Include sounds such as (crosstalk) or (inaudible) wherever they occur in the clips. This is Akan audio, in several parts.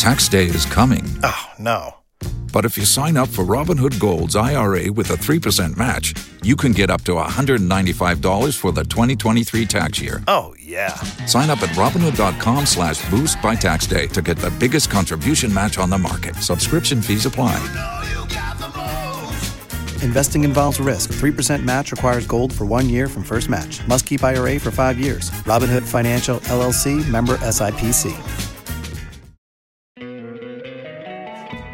Tax day is coming. Oh, no. But if you sign up for Robinhood Gold's IRA with a 3% match, you can get up to $195 for the 2023 tax year. Oh, yeah. Sign up at Robinhood.com slash boost by tax day to get the biggest contribution match on the market. Subscription fees apply. Investing involves risk. 3% match requires gold for one year from first match. Must keep IRA for five years. Robinhood Financial LLC member SIPC.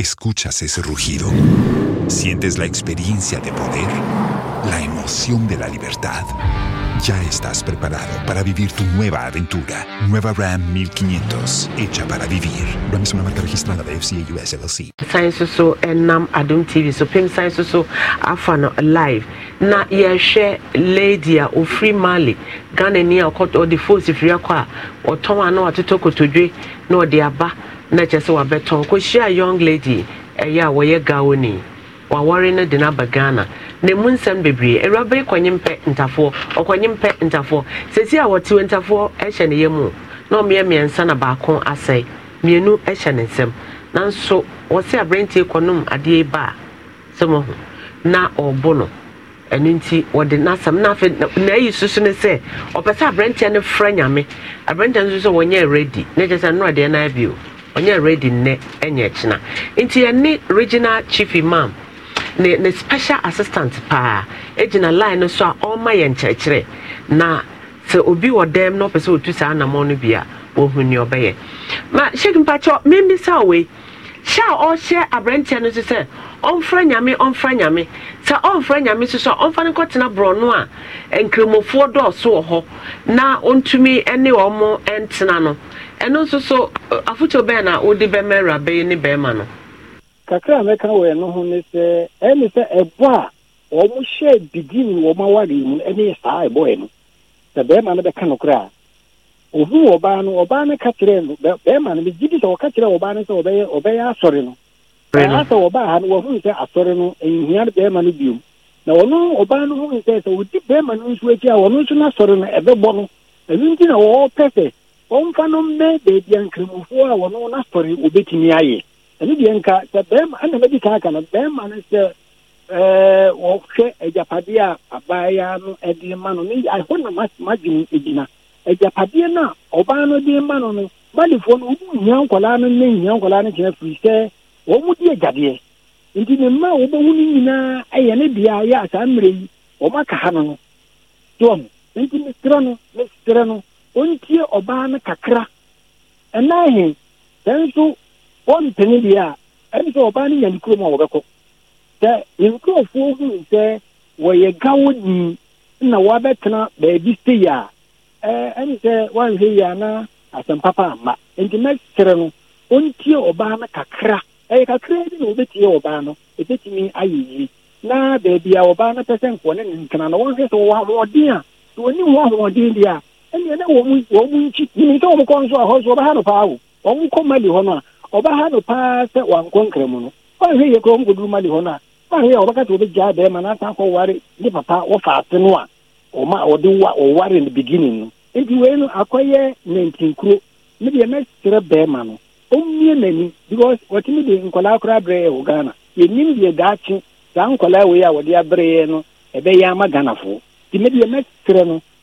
Escuchas ese rugido. Sientes la experiencia de poder, la emoción de la libertad. Ya estás preparado para vivir tu nueva aventura. Nueva Ram 1500, hecha para vivir. Ram es una marca registrada de FCA US LLC. Sai so enam Adum TV so pim sai so so afano live. Na she lady a free Mali, Ghana ni a ɔkɔtɔ ɔde fosi firi akɔ a ɔtɔn a na kotodwe na de aba. na kyerɛ sɛ wabɛtɔn kɔhyia young lady ɛyɛ a wɔyɛ gaoni wawɔre no de no aba ghana na mu nsɛm bebree awuraba yi kɔnye mpɛ ntafoɔ ɔkɔnye mpɛ ntafoɔ sɛsi a wɔtew ntafoɔ ɛhyɛ ne yam mu na ɔmmea mmiɛnsa na baako asɛe mmienu ɛhyɛ ne nsɛm nanso wɔsɛ aberanteɛ kɔnom adeɛ ba a sɛ na ɔrebo no ɛno nti wɔde n'asɛm na afei na ayi soso ne sɛ ɔpɛ sɛ aberanteɛ no frɛ nyame aberanteɛ no nso wɔnyɛ ready na kyerɛ sɛ nnora deɛ no ɔnyɛ redi nnɛ ɛnyɛ kyena nti ɛne regional chief imam ne ne special assistant paa egyina line no so a ɔrema yɛn kyerɛkyerɛ na sɛ obi wɔ dɛm na ɔpɛ sɛ otu saa anamɔ no bi a ni ɔbɛyɛ ma hyɛk mpakyɛ mmemmisa wei hyɛ a ɔhyɛ aberanteɛ no so sɛ ɔmfra nyame ɔmfra nyame sɛ ɔmfra nyame so so a ɔmfa no kɔtena borɔno a nkramofoɔ dɔɔso wɔ hɔ na ɔntumi ne ɔmo ntena no ɛno nso so afotuo bɛn na wode bɛma awuraba ne bɛrima no kakra mɛka wɔ ɛno ho ne sɛ ɛne sɛ ɛbɔ a wɔn hyɛ bigin wɔn mu ne saa ɛbɔɛ no sɛ bɛrima no bɛka ohu ɔbaa no ɔbaa no ka kyerɛ no bɛrima no megye di sɛ kyerɛ ɔbaa no sɛ ɔbɛyɛ asɔre no ha no sɛ asɔre no nhia no bɛrima no na ɔno ɔbaa no sɛ sɛ ɔdi wɔmfa no mmɛ baabi a nkramofoɔ a wɔno n'asɔre wɔbɛtumi ayɛ ɛno deɛ nka sɛ bɛrima ɛna mɛdi kan aka no bɛrima no sɛ ɛɛ wɔhwɛ agyapadeɛ a abaayewa no ɛde ma no ɛhɔ na madwene gyina agyapadeɛ no a ɔbaa no de ma no no malifoɔ no no ne no kyerɛ firi sɛ wɔn mu di agyadeɛ nti ne mma a wɔbɛhu no nyinaa ne bea yɛ mmerɛ yi wɔn aka ha no no toɔ nti mesrɛ no ontie ɔbaa no kakra ɛna he sɛ nso wɔmpene deɛ a ɛne sɛ ɔbaa no nya ne kurom a wɔbɛkɔ sɛ nkurɔfoɔ huu sɛ wɔyɛ gawoni na wɔabɛtena baabi sei a ɛne sɛ woanhwɛ yi a na asɛmpapa amma enti mɛkyerɛ no ontie ɔbaa no kakra ɛyɛ kakra bi na wɔbɛtie ɔbaa no ɛbɛtumi ayɛ yie na baabi a ɔbaa no pɛ sɛ nkɔne ne ntena na wɔnhwɛ sɛ wɔwɔ ahoɔden a sɛ wɔnim wɔ ahoɔden deɛ a e na wɔn wɔn nkyi nimisa wɔn kɔ nso a hɔ nso ɔbɛha no paa o wɔn kɔ mali hɔ no a ɔbɛha no paa sɛ wankɔ nkramu no ɔnhwɛ yɛ kura wɔn mali hɔ no a ɔnhwɛ yɛ ɔbɛka sɛ ɔbɛgya bɛrima na asan kɔ ne papa wɔfa ase no a ɔma ɔde wa ɔware no no wei no akɔyɛ nantinkuro ne deɛ bɛrima no ɔmmie n'ani because wɔtumi de nkɔlaa koraa ghana yɛnim deɛ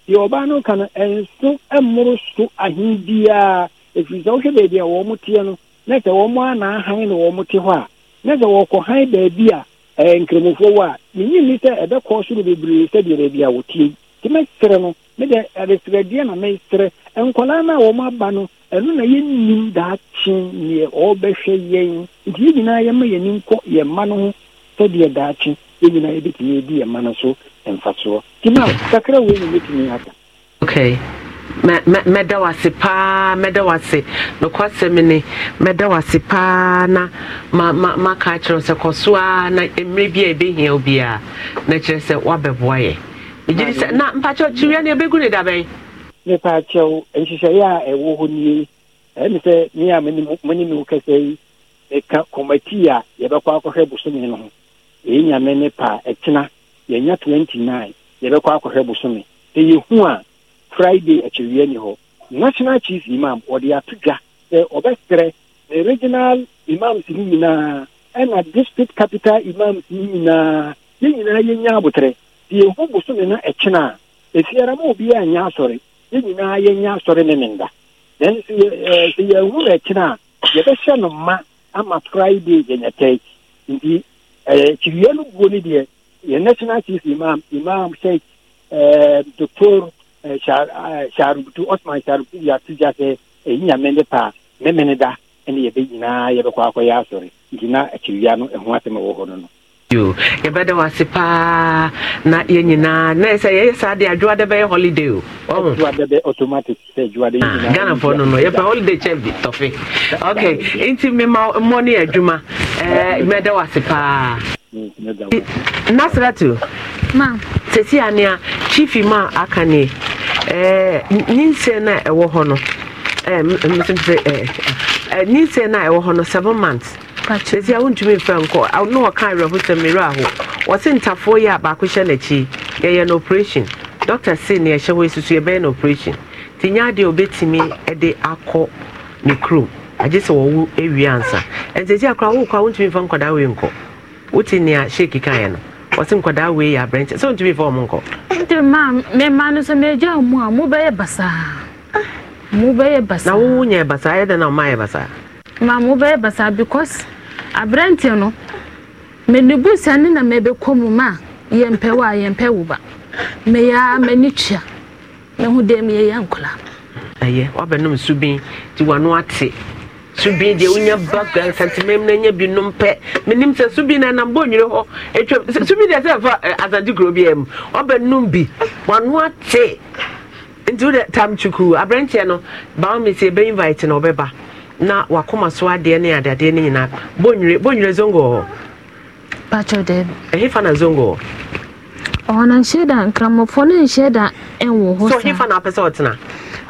deɛ ɔbaa no ka no ɛnso mmoro so ahen biara ɛfiri sɛ wohwɛ baabi a wɔn mo teɛ na sɛ wɔn a naahan na wɔn te hɔ a na sɛ wɔkɔhan baabi a ɛɛ nkramofoɔ wɔ a sɛ soro bebree sɛdeɛ baabi a mɛsrɛ no ɛresrɛdeɛ na mɛsrɛ nkɔlaa no a wɔn aba no ɛno na yɛnnim daakye neɛ ɔrebɛhwɛ yɛn nti yɛn nyinaa yɛma yɛn yɛn mma no ho sɛdeɛ daakye nyinaa yɛbɛtumi yɛn mma no so mfasoɔ tumi a kakra wei ne mɛtumi aka okay mɛda wase paa mɛda wase nokwasɛm ne mɛda wase paa na maka kyerɛ sɛ kɔ na mmerɛ bi a ɛbɛhia wo biaa na kyerɛ sɛ woabɛboa yɛ megye na mpakyɛw kyiwia ne ɛbɛgu ne dabɛn mepaakyɛw nhyehyɛeɛ a ɛwɔ hɔ nie ɛne sɛ me a me wo a yɛbɛkɔ akɔhwɛ bosome no ho ne pa e yɛnya twenty nine yɛbɛkɔ akɔhwɛ bosome sɛ yɛhu a friday akyɛwia ni hɔ national chief imam ɔde ato dwa sɛ ɔbɛserɛ ne regional imams no nyinaa ɛna district capital imams no nyinaa yɛn nyinaa yɛnya abotrɛ sɛ yɛhu bosome no ɛkyena a ɛfiara ma obiaa nyɛ asɔre yɛn nyinaa yɛnya asɔre ne ne nda then sɛ yɛhu no ɛkyena a yɛbɛhyɛ no ma ama friday yɛnyɛtɛe nti kyiriwia no buo no deɛ የናሽናል ቺፍ ኢማም ኢማም ሼክ ዶክቶር sharubutu osman sharubutu yɛato gya sɛ ɛyi eh, nyame ne pa ne mene da ne yɛbɛ nyinaa yɛbɛkɔ akɔyɛ asɔre nti na paa na yɛ nyinaa na sɛ yɛyɛ saa deɛ adwoa dɛ bɛyɛ holiday o no no yɛpɛ holiday kyɛ bi tɔfe ok nti mema mmɔ ne yɛ adwuma nasratu sɛsi a nea chief ma aka ne ninsɛ no a ɛwɔ hɔ no ninsɛ no a ɛwɔ hɔ no seven months sɛsi a wontumi mfɛ nkɔ ne wɔka awerɛho sɛ mmerɛ aho wɔse ntafoɔ yi a baako hyɛ n'akyi yɛyɛ no operation doctor se ne ɛhyɛ hɔ susu yɛbɛyɛ no operation nti nyɛ adeɛ obɛtumi de akɔ ne kurom agye sɛ wɔwo awie ansa ɛnsɛsi akora wowokɔ a wontumi mfa nkɔda wei nkɔ wote nea sheki kaeɛ no ɔse nkwadaa wei yɛ aberɛnkyɛ sɛ wontumi fa ɔmo nkɔ nti ma mema no sɛ megya mu a mobɛyɛ basaa mobɛyɛ basaa na wowo nya basaa ɛyɛ dɛn na ɔmayɛ basaa ma mobɛyɛ basaa because aberɛnte no mene bu sane na mebɛkɔ mu ma a yɛmpɛ wo a yɛmpɛ wo ba meyɛa m'ani tua mehu dɛ meyɛyɛ nkɔla ɛyɛ woabɛnom subin nti wano ate subi deɛ wonya background santemem na nya bi nom pɛ menim sɛ subi na nam bɔnwere hɔ atwa subi deɛ sɛ fa eh, asante kuro bi am ɔbɛnom bi wano ate nti wode tam kyukuu aberɛnteɛ no bawo me invite na ɔbɛba na wakoma so adeɛ ne adadeɛ no nyinaa bɔnwere bɔnwere zongo hɔ patro dɛ ɛhefa na zongo hɔ na nhyɛ da nkramofoɔ no nhyɛ da ɛnwo hɔ so hefa na apɛ sɛ ɔtena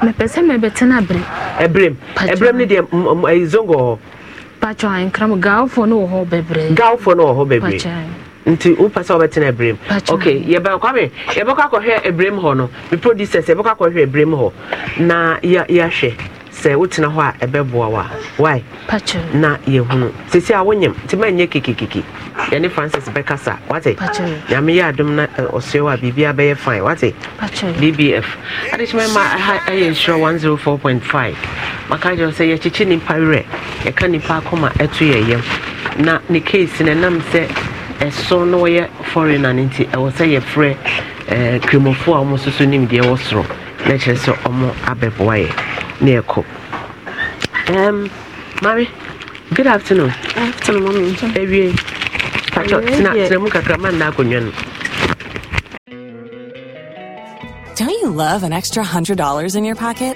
mepɛ sɛ mebɛtena berɛ ne deɛ zongo hɔ patwɔ ankram gawofoɔ ne nti wopɛ sɛ wobɛtena abrɛm ok yɛbɛkwame yɛbɛkɔ akɔhwɛ abrɛm hɔ no me producers yɛbɛkɔ akɔhwɛ hɔ na yɛahwɛ sɛ wotena hɔ a ɛbɛboa wa wai na yɛhunu sisi a wonyam nti ma nyɛ kekekeke yɛne francis bɛkasa wate nyame yɛ adom na ɔsɛ wɔ a biribia bɛyɛ fine wate bbf adekyemɛ ma ha ɛyɛ nhyira 104.5 maka gyerɛ sɛ yɛkyekye nnipa werɛ yɛka nnipa akɔma ɛto yɛ na ne case no ɛnam sɛ ɛso na wɔyɛ foreigner no nti ɛwɔ sɛ yɛfrɛ kremofo a wɔn nso so soro na kyerɛ sɛ ɔmo abɛboa yɛ na good afternoon tena tena mu kakra ma nna akonnwa no Don't you love an extra $100 in your pocket?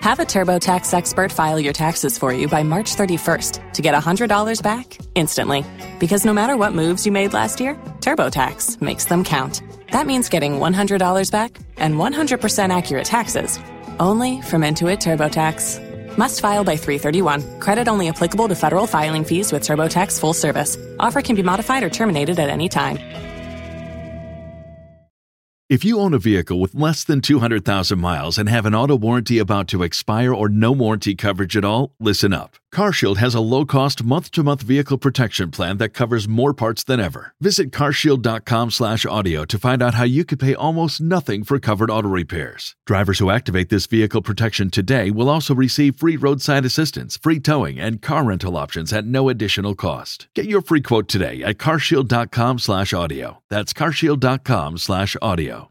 Have a TurboTax expert file your taxes for you by March 31st to get $100 back instantly. Because no matter what moves you made last year, TurboTax makes them count. That means getting $100 back and 100% accurate taxes only from Intuit TurboTax. Must file by 331. Credit only applicable to federal filing fees with TurboTax full service. Offer can be modified or terminated at any time. If you own a vehicle with less than 200,000 miles and have an auto warranty about to expire or no warranty coverage at all, listen up. CarShield has a low-cost month-to-month vehicle protection plan that covers more parts than ever. Visit carshield.com/audio to find out how you could pay almost nothing for covered auto repairs. Drivers who activate this vehicle protection today will also receive free roadside assistance, free towing, and car rental options at no additional cost. Get your free quote today at carshield.com/audio. That's carshield.com/audio.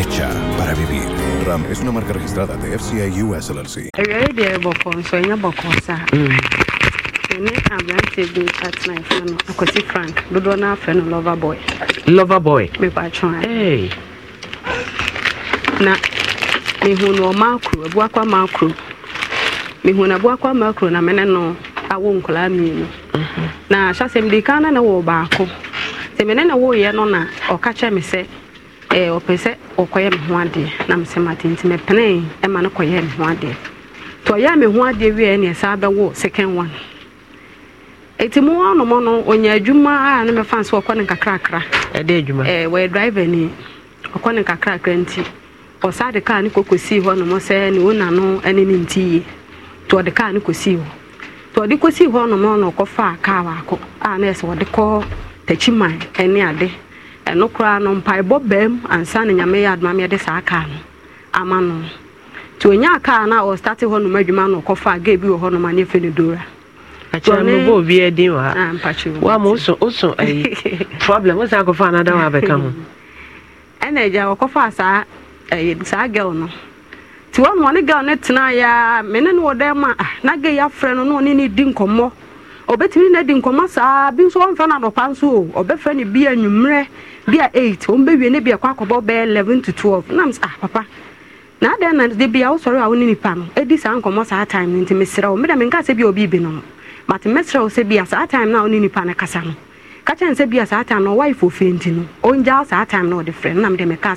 hecha para vivir. Ram es una marca registrada de FCI US LLC. deɛ ɛbɔkɔ nso ɛnyɛ bɔkɔ frank dodoɔ no afɛ no lover boy. lover boy. mepatwa. ¿eh? Hey. na e e na no awo nkwadaa mmienu. Mm-hmm. na ahyɛ asɛm di na na wɔ baako sɛ mene na wɔɔyɛ no na ɔka kyɛ me sɛ. ɔpɛ sɛ ɔkɔyɛ me ho adeɛ na mesɛ mate nti mɛpenee ɛma no kɔyɛ me ho adeɛ nti ɔyɛ me ho adeɛ wie ne ɛsaa bɛwo second one ɛti e mu anomɔ no ɔnya adwuma a ne mɛfa sɛ ɔkɔ ne nkakrakra ɛdɛ e adwuma eh, wɔyɛ e driver ni ɔkɔ ne nkakrakra nti ɔsaa de kaa ne kɔkɔsii hɔ nomɔ sɛ ne wona no ne ne nti yie nti ɔde kaa ne kɔsii hɔ nti ɔde kɔsii hɔ nomɔ na ɔkɔfaa kaa baako a na ɛsɛ ɔde kɔ takyiman ne ade ɛno koraa no mpaebɔ ansa ne nyame yɛ adoma meɛde saa kaa no ama no nti ɔnya kaa no a ɔstate hɔ adwuma no ɔkɔfa a ga bi wɔ hɔ nom aneɛfɛ no dora ɛna agya wɔkɔfaa saa gɛl no nti gɛl no a mene ne wɔ dɛn ma na ga yi afrɛ no na ɔne ne di obetumi na di nkɔmɔ saa bi nso ɔmfɛ na nso o ɔbɛfɛ ne bi bi eight wɔn ne bi ɛkɔ akɔbɔ bɛɛ eleven to twelve nam papa na adan na de bi a wosɔre a nipa no edi saa nkɔmɔ saa time nti mesrɛ wo meda menka sɛ bi obi bi mate sɛ bi saa time na nipa no kasa no bi saa time na ɔwa ifo fe nti ɔngya saa time na ɔde frɛ nam de meka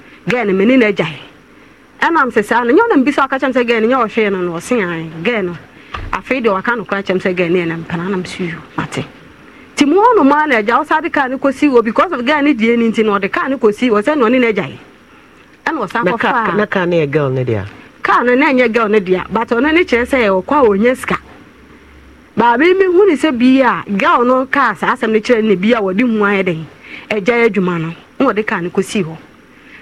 gɛɛ no mene n'agya e ɛnam sɛ saa no nyɛ ɔnam bi sɛ ɔka kyɛm sɛ gɛɛ no nyɛ ɔhwee no no ɔse ae gɛɛ no afei deɛ ɔka nokora kyɛm sɛ gɛɛ no ɛnam pana nam so yo mate nti mu ɔno maa no agya wo saa de kaa no kɔsi wɔ because of gɛɛ no die no nti no ɔde kaa no kɔsi wɔ sɛ na ɔne n'agya e ɛna ɔsan kɔfaa kaa no yɛ gɛl no dea kaa no na ɛnyɛ gɛl no dea but ɔno ne kyerɛ sɛ ɔkɔ a ɔnya sika baabi mi hu ne sɛ bii a gɛl no kaa saa asɛm no kyerɛ ne bi a wɔde hu ayɛ den agya adwuma no na wɔde kaa no kɔsi hɔ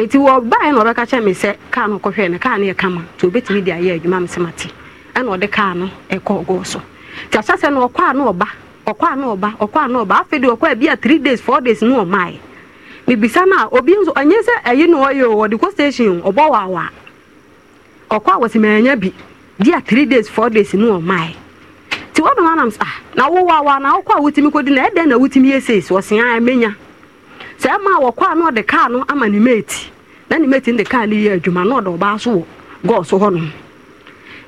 eti wɔ baa na ɔbɛka kyerɛ mi sɛ kaa no kɔhwɛ no kaa no yɛ kama nti obetumi de ayɛ adwuma mi sɛ ma te ɛna ɔde kaa no ɛkɔ ɔgɔɔ so te ahyɛ sɛ no ɔkɔ a ɔba ɔkɔ a ɔba ɔkɔ a ɔba afei de ɔkɔ a a three days four days no ɔmaa yɛ mibisa na obi nso ɛnyɛ sɛ ɛyi na ɔyɛ o ɔde kɔ station ɔbɔ waawa ɔkɔ a wɔsi ma bi di a three days four days no ɔmaa yɛ ti wɔn na wɔn anam sa ah, na wɔwaawa na ɔkɔ a wotumi kɔ di na ɛdɛn na wotumi yɛ sɛ so saa ɛma wɔkɔ a na ɔde kaa no ama ne mate na ne mate no de kaa no yɛ adwuma na ɔde ɔbaa so wɔ gɔɔ hɔnom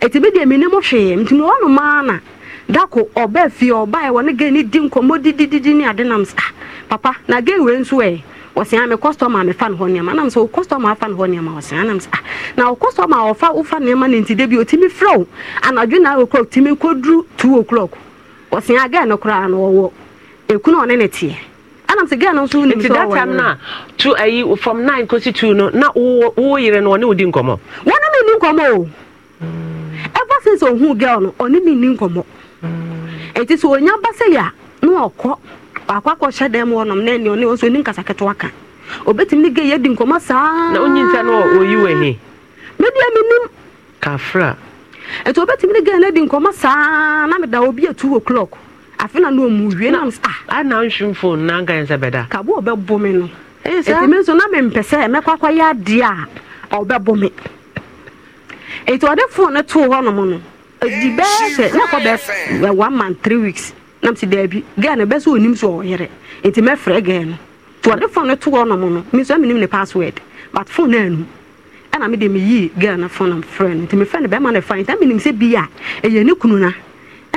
ɛti bi deɛ menim hwee nti maa na dako ɔbaa fie ɔbaeɛ wɔ ne gɛ ne di nkɔmmɔ didididi ne ade nam sa papa na gɛ wei nso ɛ wɔsea me customer mefa ne hɔ nneɛma nam sɛ wo afa ne hɔ nneɛma wɔsea sɛ na wo customer ɔfa wofa nneɛma no nti anadwo na two o'clock no koraa ɔne ne teɛ anam sɛ ghana nso wonim sɛ that time no a to ayi eh, from 9 kɔsi 2 no na wo yere no ɔne wodi nkɔmmɔ wɔne me nni nkɔmmɔ o ever since ɔhu girl no ɔne me nni nkɔmmɔ ɛnti sɛ ɔnya ba sɛ yɛ a na ɔkɔ wakɔ akɔhyɛ dan mu ɔnom na ɛne ɔne ɔso ɔni nkasa ketewa ka obɛtumi ne gɛ yɛdi nkɔmmɔ saa na ɔnyi nsa no ɔyi wɔ he media menim kafra ɛnti obɛtumi ne gɛ no adi nkɔmmɔ saa na meda obi atu o'clock afe na no mu wie nam ah ana nhwim phone na nkan sɛ bɛda ka bo ɔbɛbɔ me no ɛti e, me nso na mempɛ sɛ mɛkɔ akɔyɛ adeɛ a ɔbɛbɔ me ɛti ɔde phone no too hɔ nom no ɛdi bɛɛ sɛ na kɔ bɛ eh, one month three weeks nam si daabi gɛɛ no bɛsɛ onim so ɔyere ɛti mɛfrɛ gɛɛ no ti ɔde phone no too hɔ nom no mi ni mi ne password but phone no anum ɛna mede meyii gɛɛ no phone no mfrɛ no nti mefrɛ no bɛma no fa nti na menim sɛ bi a ɛyɛ ne kunu na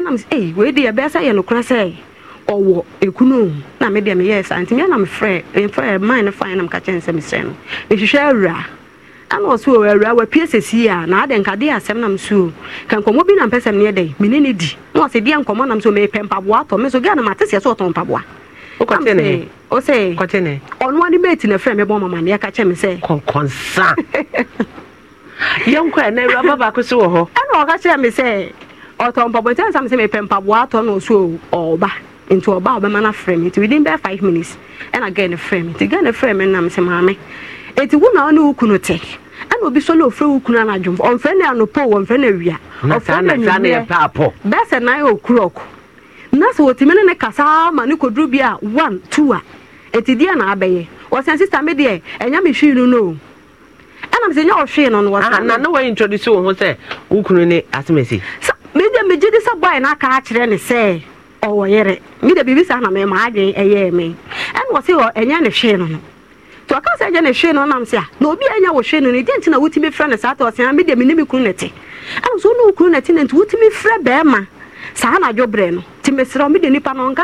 nam ee eh, wei deɛ ɛbɛyɛ sɛ yɛ nokora sɛ ɔwɔ ekunu na mi deɛ mi yɛ sa nti mi anam frɛ mfrɛ man no fan nam kakyɛ nsɛm sɛ no ehwehwɛ awura ɛna ɔso wɔ awura wapue sɛsi a na adɛ nkadeɛ asɛm nam so ka nkɔmɔ bi nam pɛ sɛm neɛ dɛn mi ne ne di na ɔsɛ deɛ nkɔmɔ nam so mepɛ mpaboa atɔ mi so gɛɛ na ma te sɛ sɛ ɔtɔn mpaboa ɔsɛ ne? ani bɛɛ ti na fɛn mi bɔ ɔmama ne ɛka kyɛ mi sɛ. kɔnkɔnsa (laughs) yɛn kɔ ɛnɛ awura babaako so wɔ hɔ. ɛna ɔka kyerɛ ɔtɔ mpaboa nti ansa mi sɛ mepɛ mpaboa atɔ no nso ɔba nti ɔba ɔbɛma no frɛ me nti within bɛɛ five minutes ɛna gɛɛ no frɛ me nti gɛɛ no frɛ me nam sɛ maame eti wo na ɔne wo kunu te ɛna obi sɔ na ofrɛ wo kunu anadwo ɔnfrɛ no anopɔ ɔnfrɛ no awia ɔfrɛ no anwummerɛ bɛsɛ nan yɛ okurɔko na sɛ wɔtumi ne ne kasa ma ne kɔduru bi a one two a eti deɛ na abɛyɛ wɔsɛn sista mi deɛ ɛnya mi hwii no no ɛna mi sɛ nyɛ ɔhwii no no wɔsɛn. na na wɔyɛ introduce wo ho sɛ wo kunu ne asemesi. So. megye oh, megye de sɛ bɔe no aka ne sɛ ɔwɔ yere mede biribi saa na mema adwen ɛyɛɛ me ɛne wɔ se ɛnyɛ ne hwee no no nti ɔka sɛ ɛnyɛ ne hwee no nam sɛ a ah, na obi a wɔ hwee no no ɛdeɛ nti na wotumi frɛ no saa ta ɔsea ah, mede mene me kunu ne te ɛno wone wo kunu ne te saa anadwo berɛ no nti meserɛ mede nnipa no ɔnka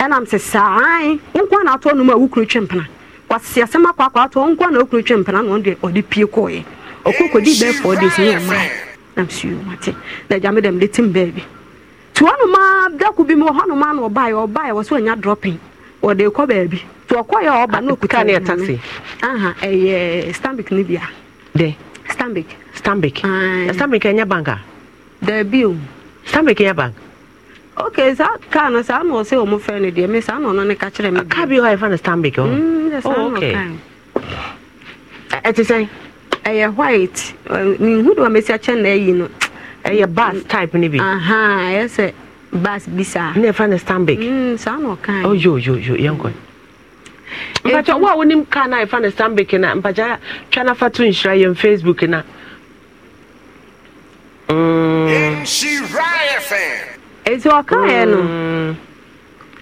m si saa nkwa na atụ nom a wokuro twe mpena kwasese asɛm akwa akɔ nkwa na wokuro twe mpena na ọ ɔde pie kɔɔɛ ɔkɔ kɔdi bɛɛ fɔɔ de sini ɛmaa nam suo mate na agya me dɛm de tim m nti hɔnom a dako bi mu wɔ hɔnom a na ɔbaeɛ ɔbaeɛ wɔ so anya drɔpin wɔde kɔ baabi nti ɔkɔyɛ ɔba na ɔkuta ne ɛtase aha ɛyɛ stambik ne bia dɛ stambik stambik stambik ɛnyɛ bank a daabi o stambik ɛnyɛ bank okay saa kaa no saa na ɔsɛ ɔmo fɛ no deɛ me saa na ɔno ne ka kyerɛ me kaa bi mm, hɔ oh, e, e eh, a yɛfrɛ no stanbic hɔ oh okay ɛte sɛn ɛyɛ white mehu de wamɛsi akyɛ na ayi no ɛyɛ bas type no bi ɛyɛ sɛ bas bi saa ne ɛfrɛ no stanbic saa na yoo ɔyoyoyo yɛnkɔ mpakya wo a wonim kaa no a yɛfrɛ no stanbic no mpakya twa no afa to nhyira yɛn facebook no Nhyira FM ɛti ɔka yɛ no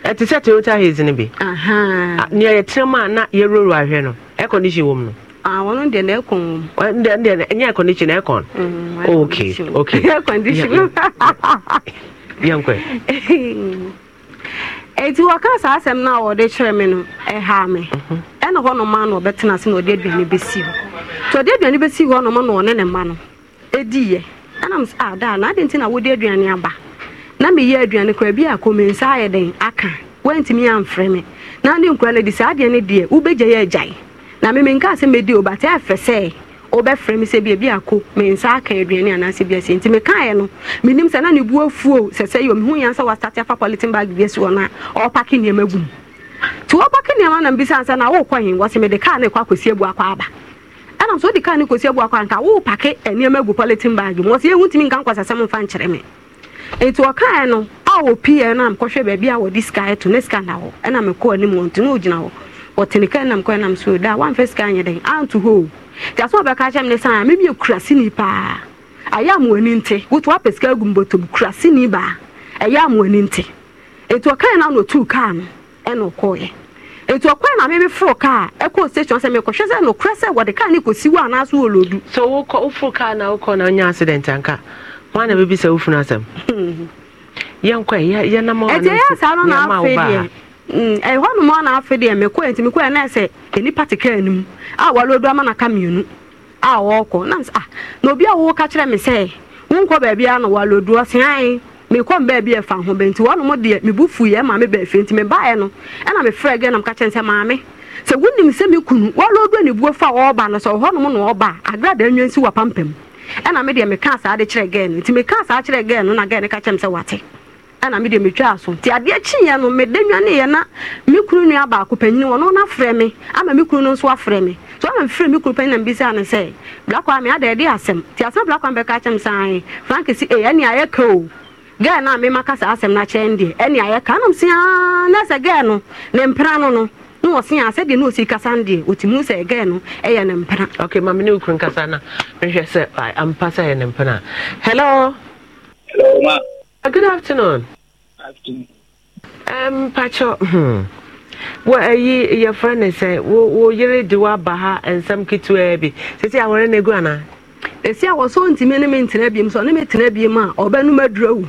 ɛte hmm. sɛ toyota haze no bi nea yɛtrɛ mu a na yɛroro ahwɛ no air condition wɔ mu no wọn deɛ na ɛkɔn wɔn deɛ deɛ ɛnyɛ air condition ɛkɔn hmm, oh, okay okay air condition yɛn kɔ yɛ. eti wɔka saa asɛm no mhm. a wɔde kyerɛ me no ɛha me ɛna hɔ noma na ɔbɛtena ase na ɔde aduane bɛsi nti ɔde aduane bɛsi hɔ noma na ɔne ne mma no ɛdiiɛ ɛnam sɛ adaa na nti na aduane aba. na meyɛ aduane kora bi akɔ me nsa ayɛ den aka wantumi amfrɛ me na ne nkura no de saa adeɛ no deɛ wobɛgya yɛ agyae na me menka sɛ medi o bate afɛ sɛ wobɛfrɛ me sɛ biabi akɔ me nsa aka aduane anaasɛ biasɛ nti mekaeɛ no menim sɛ na ne bu afuo sɛ sɛ yɛ mehu yɛn sɛ wastate afa politin bag bi asi hɔ no a ɔpake nneɛma gum nti wɔpake nneɛma na mbisa ansa na wokɔ hen wɔ sɛ mede kaa ne ɛkɔ akɔsi abu akɔ aba ɛnam sɛ wode kaa ne kɔsi abu akɔ anka wopake nneɛma gu politin bag mu wɔ sɛ yɛhu ntumi nka nkɔsɛsɛm mfa nkyerɛ me nti ɔkaeɛ no a wɔpii no a mekɔhwɛ baabi a wɔde sika to ne sika na hɔ ɛna mekɔɔ anim wɔ nti na ɔgyina hɔ ɔtene ka nam kɔ nam so da wamfɛ sika nyɛ dɛn anto hɔ nti asɛ ɔbɛka kyɛ ne san a memyɛ kuraseni paa ɛyɛ amoani nte woto wapɛ sika agu kura sini baa ɛyɛ amoani nte nti ɔkaeɛ no na ɔtuu kaa no ɛna ɔkɔɔyɛ nti ɔkwan na mimi foro kaa ɛkɔ station sɛ mekɔhwɛ sɛ nokorɛ sɛ wɔde kaa ne kɔsi na Mm-hmm. Mm, wa ah, na bɛbi sɛ wofunu asɛm yɛnkɔ yɛnam ɛhɔ nom ana afe deɛ mekɔɛ nti mekɔɛ na sɛ nipa a ama naka a na na obi a ka kyerɛ me sɛ wonkɔ baabiara na wɔalodu ɔse ae mekɔ mbaa bi ɛfa ho bɛnti wɔn mo deɛ mebu fu yɛ maame bɛɛ fɛ nti mebaeɛ no ɛna maame kunu fa na ɛna me deɛ meka saa de kyerɛ gɛɛ no nti meka saa kyerɛ gɛɛ no na gɛɛ no ka kyerɛ me sɛ wate ɛna me deɛ metwaa so nti adeɛ kyeeɛ no mede nwaneeɛ na me kunu nua baako panyini wɔno no afrɛ me ama me kunu no nso afrɛ me so ama mefrɛ me kunu panyin na mbisaa no sɛ blakwa me ada ɛde asɛm nti asɛm blakwa bɛka kyerɛ me saae franke si ee ɛne ayɛka o gɛɛ no a memaka saa asɛm no akyerɛ n deɛ ɛne ayɛka anom sia na sɛ gɛɛ no ne mpra no no na wɔse a sɛdeɛ na ɔsi kasa no deɛ ɔtumi sɛ ɛgɛɛ no ɛyɛ eh, ne mpena ok mame ne wokuro nkasa no mehwɛ sɛ ampa sɛ ɛyɛ ne mpena hello hello ma uh, good afternoon afternoon um, pakyɛ hmm. wɔ ayi yɛfrɛ ne sɛ wo yere de woaba ha nsɛm ketewaa bi sɛsi awɔre no agu anaa ɛsi a wɔ sɛ ɔntumi ne mentena biem sɛ ɔne metena biem a ɔbɛnom adura wu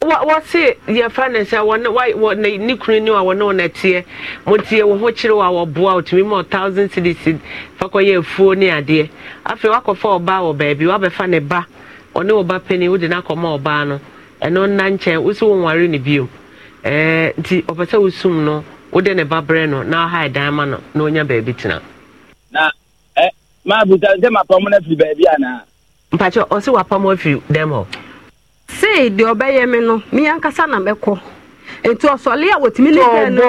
wɔse yɛfa ne sɛ ne kunu ne a wɔne wɔn teɛ motie wo ho kyerɛ wɔ a otu wɔtumi ma thousand cities fa kɔyɛ efu ne adeɛ afei wakɔfa ɔbaa wɔ baabi wabɛfa ne ba ɔne ɔba panyin wode no akɔma ɔbaa no ɛno nna nkyɛn wosi wo nware ne bio ɛɛ nti ɔpɛ sɛ wosum no wode ne ba brɛ no na ɔha ɛdan eh, ma no na onya baabi tena. na ɛ maa buta n sɛ ma pam na firi baabi ana. mpakyɛ ɔsi wa pam afiri dɛm hɔ. sei deɛ ɔbɛyɛ me no me ankasa na mɛkɔ nti ɔsɔle a wɔtumi ne dɛn na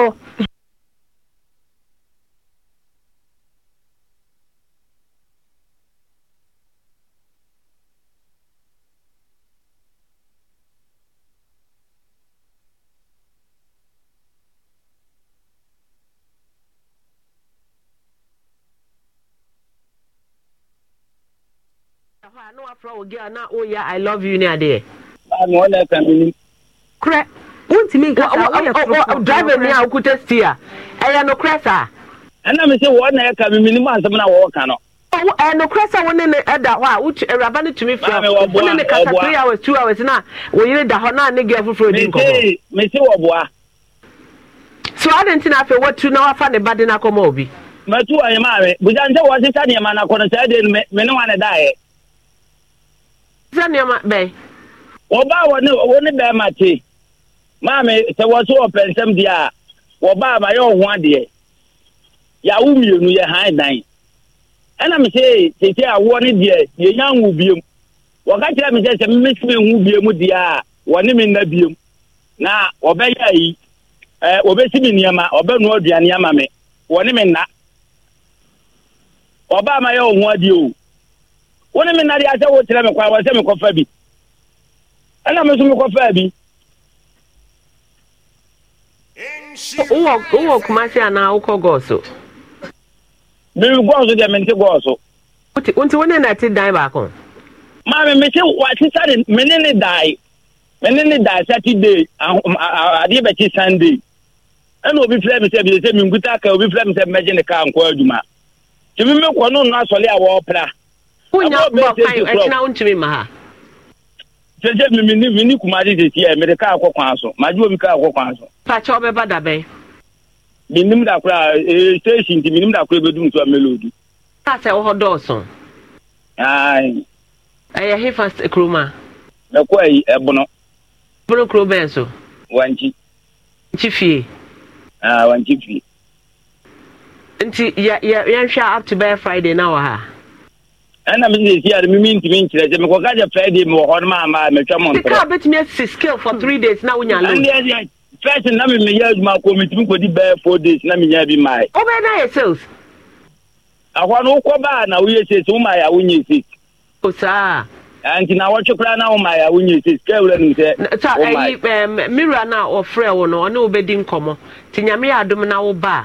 wafra wo gea i love you na ọ na-aka mmiri. korɛ wontumi nkasa woyɛ korokoro driver ni a okuta steer ɛyɛ no korɛ saa. ɛna mi sɛ wɔn na ɛka mmiri mu asɛm na wɔɔka no. ɛnokorɛ oh, sɛ wo ne ne ɛda hɔ eh, a wo awuraba no tumi frɛ wo ne kasa three hours two hours na wo da hɔ na ne gɛ foforɔ di nkɔmɔ. mesi wɔ boa. so ɔde nti na afei watu na wafa ne ba de na akɔma obi. mɛtu wɔ yɛ maame busa nse wɔ sisa nneɛma na kɔnɔ sɛ ɛde me ne wa ne da yɛ. sisa bɛn. wɔbaa wɔ ne wɔ ne bɛrima te maame sɛ wɔ so wɔ pɛnsɛm deɛ a wɔbaa ma yɛ ɔho adeɛ yàwó mmienu yɛ hann dan ɛna mi sɛ tete awoɔ ne deɛ yɛ nya nwo biem wɔka kyerɛ mi sɛ sɛ mmesi mi nhu biem deɛ a wɔne mi nna biem na wɔbɛyɛ ayi ɛɛ wɔbɛsi mi nneɛma ɔbɛnua aduane ama mi wɔne mi nna ɔbaa ma yɛ ɔho adeɛ o wɔne mi nna deɛ asɛ wɔkyerɛ mi kwan wɔsɛ mi kɔfa bi. ɛna mi nso mi kɔ fɛɛ bi. wowɔ wowɔ kumasi anaa wokɔ gɔɔso. mi gɔɔso deɛ mi ti gɔɔso. nti wɔn nana ti dan baako. maami mi ti wa sisa mi ni ne dan mi ni ne dan saturday adeɛ bɛ ti sunday ɛna obi filɛ mi sɛ bi mi ka obi filɛ mi sɛ mɛgye ne kaa nkɔ adwuma tumi mi kɔ kan ma ha. sese mi mi ni mi ni kumadi sisi yɛ mɛde kaa kɔ kwan so maa ju omi kaa kɔ kwan so. pàṣẹ ọbẹ bá dàbẹ. mi nim dakura ee station ti mi nim dakura bɛ dum so amelo du. paasẹ wọ dọọsùn. ayi. ɛyɛ hefa kuroma. ɛkọ ɛyi ɛbono. bono kuro bɛn so. wankyi. nkyi fie. aa wankyi fie. nti ya ya yɛn hwɛ up to bɛyɛ friday na wɔ ha. ɛna mi ntumi nkyerɛ sɛ hɔ metwa mo na wonya first na mi adwuma ko mi tumi kodi bɛyɛ four days na mi bi maa yi. na sales. no wokɔ baa na woyɛ sales wo maa yɛ awo nti na wɔtwe na wura nim ɔfrɛ wo no ɔne nyame yɛ na wo baa.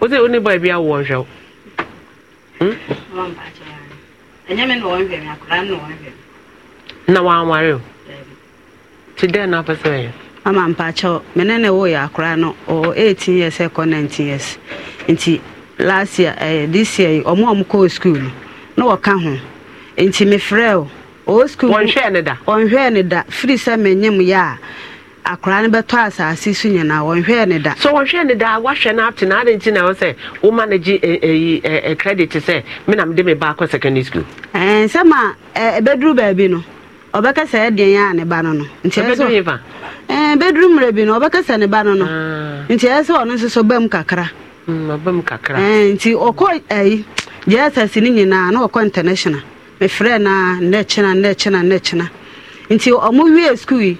wọ́n sẹ́ oní bọ́ọ̀ bi awọ ọ̀hwẹ́ o. na wanware o ti dẹ́n na apẹsẹ yẹ. ama mpakyɛw mene ne woyɛ akoraa no ɔwɔ 18 years ɛkɔ eh, 19 years nti last year eh this year yi ɔmo a ɔmo kɔɔ school na wɔka ho nti mefrɛ o oh, ɔwɔ oh, school ɔnhwɛɛ ne da ne da firi sɛ yɛ a akwaraa no bɛtɔ asase so nyinaa wɔnhwɛɛ ne da so wɔhwɛɛ ne da wahwɛ no apte na ade nti na sɛ woma no gye ɛyi eh, eh, eh, credit sɛ na mede me ba akɔ secondary school nsɛm a ɛbɛduru baabi no ɔbɛka sɛ ɛdeɛ yɛ a ne ba no no ntiɛsɛ bɛduru mmerɛ bi no ɔbɛka sɛ ne ba no no ah. nti ɛyɛ ɔno nso so bam kakra hmm, nti ɔkɔ ayi gyaa asase nyinaa na ɔkɔ international na nti ɔmo wie yi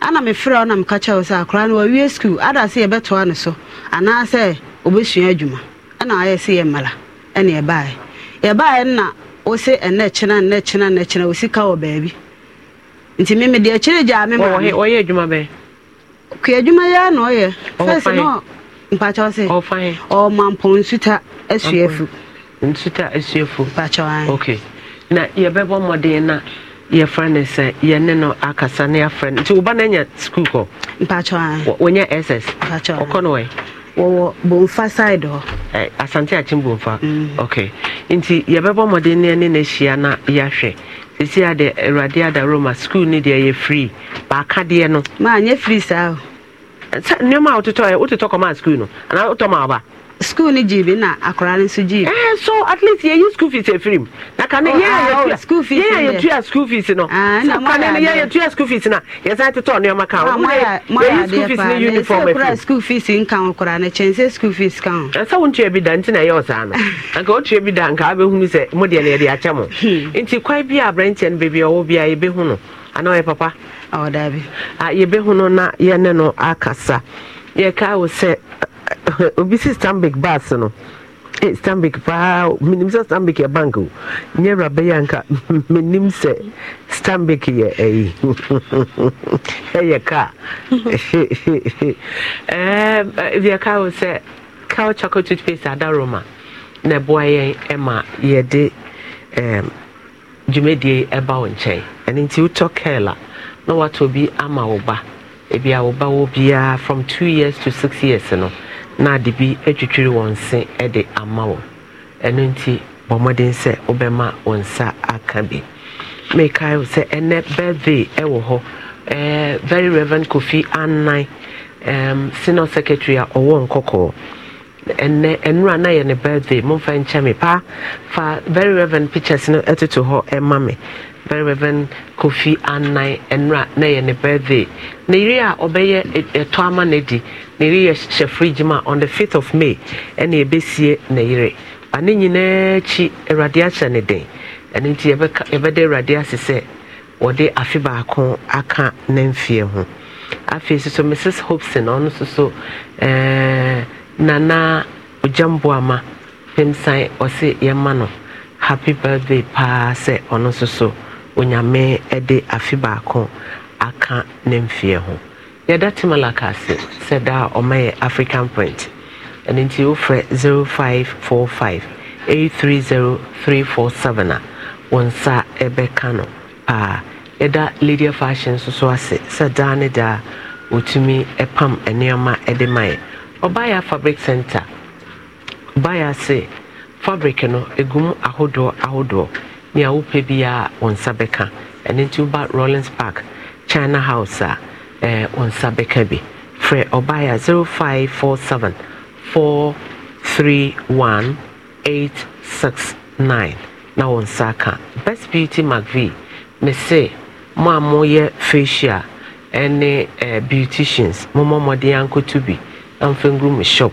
ana mefrɛ wo na meka akwara wo sɛ akoraa no wawie skul ada anasị yɛbɛtoa no so anaasɛ ɔbɛsua adwuma ɛna ayɛ sɛ yɛ mmala anyị. yɛbaeɛ yɛbaeɛ na wo se ɛnɛ kyena nnɛ kyena nnɛ kyena wo sika wɔ baabi nti meme deɛ kyerɛ gyaa me maɔyɛ adwuma bɛɛ kua adwuma yɛa na ɔyɛ fɛsɛ na mpakyɛw sɛ ɔma mpɔ nsuta asuafu nsuta asuafu ok na mmadụ mmɔden na yɛfrɛ uh, no sɛ yɛne no akasa ne yɛafrɛ no nti woba no anya skul kɔ wɔnyɛ ss ɔkɔ no wɛ wɔwɔ bomfa side ọ. Eh, asante akyem bomfa mm. ok nti yɛbɛbɔ mmɔden ne ne no ahyia na yɛahwɛ ɛsi ade awurade ada roma skul no deɛ yɛ frii baaka deɛ no maanyɛ frii saa nneɛma a wototɔ wototɔ kɔmaa skul no anaa wotɔ ma aba school ni jiibi na akwaraa ni nso jiibi. ɛɛ eh, so at least yɛn yi school fees efiri mu na kane oh, yɛn a ah, oh, school fees yɛn a yɛtua school fees no ah, so kane ni yɛn a school fees na yɛsan tetɔ nneɛma kan o wúlò yɛn yi school fees ni uniform efiri. ɛsɛ school fees nkan koraa na kyɛn sɛ school fees kan. ɛsɛ wo ntua bi da nti na ɛyɛ ɔsan no (laughs) nka o tua bi da nka abɛhunu sɛ mo deɛ na yɛde akyɛ mo hmm. nti kwan bi a aberanteɛ no beebi a ɔwɔ bi a yɛbɛhu no anaa ɔyɛ papa. ɔwɔ daabi. Ah, yɛbɛhu no na yɛne no akasa yɛka wo sɛ obi si stanbic bus no eh, stanbic paa menim sɛ stanbic yɛ bank o nyɛ wura bɛyɛ anka (laughs) menim sɛ stanbic yɛ eh, ayi (laughs) ɛyɛ kaa bia ka wo sɛ cow chocolate toothpaste Roma na ɛboa yɛn eh, ma yɛde dwumadie ɛba wo nkyɛn ɛno nti wotɔ kɛl a na woatɔ bi ama wo ba ebi a wo ba wɔ biara from two years to six years no na ade bi atwitwiri wɔn se de ama wɔn ɛno nti bɔ mmɔden sɛ wobɛma wo nsa aka bi mekae sɛ ɛnɛ birthday ɛwɔ hɔ eh, very reverend kofi annan um, senior secretary a ɔwɔ nkɔkɔɔ ɛnɛ nnura na yɛ ne birthday momfa nkyɛ me paa fa very reverend pictures no ɛtoto hɔ ɛma me very reverend kofi anan nwura na yɛ ne birthday na yiri a ɔbɛyɛ ɛtɔ e, e, ama na di na yiri yɛ hyɛ fridge mu a on the fifth of may ɛna ebesie na yiri ba ne nyinaa akyi awurade ahyɛ ne den ɛne nti yɛbɛda awurade ase sɛ wɔde afe baako aka ne mfeɛ ho afei soso mrs hobson ɔno soso ɛɛɛ nana ogyamboama pemsan ɔse yɛma no happy birthday paa sɛ ɔno soso onyame de afe baako aka ne mfeɛ ho yɛda te malaka ase sɛ da a ɔma yɛ african point ɛno nti wofrɛ 0545 a wɔn nsa ɛbɛka no paa yɛda ladia fashion nso so ase sɛ daa ne daa wɔtumi pam nneɛma de ma yɛ ɔbaeɛ fabric center ɔbaeɛ ase fabric no ɛgum ahodoɔ ahodoɔ nea wopɛ biara wɔn nsa bɛka ɛno nti woba rollins park china house a ah, ɛɛ eh, wɔn nsa bɛka bi frɛ ɔbaeɛ a zero five four seven four three one eight six nine na wɔn nsa ka best beauty mcvie mese mo a moyɛ facial ɛne ɛɛ eh, beauticians mo mo mmɔden ankoto bi amfɛn gu mo shop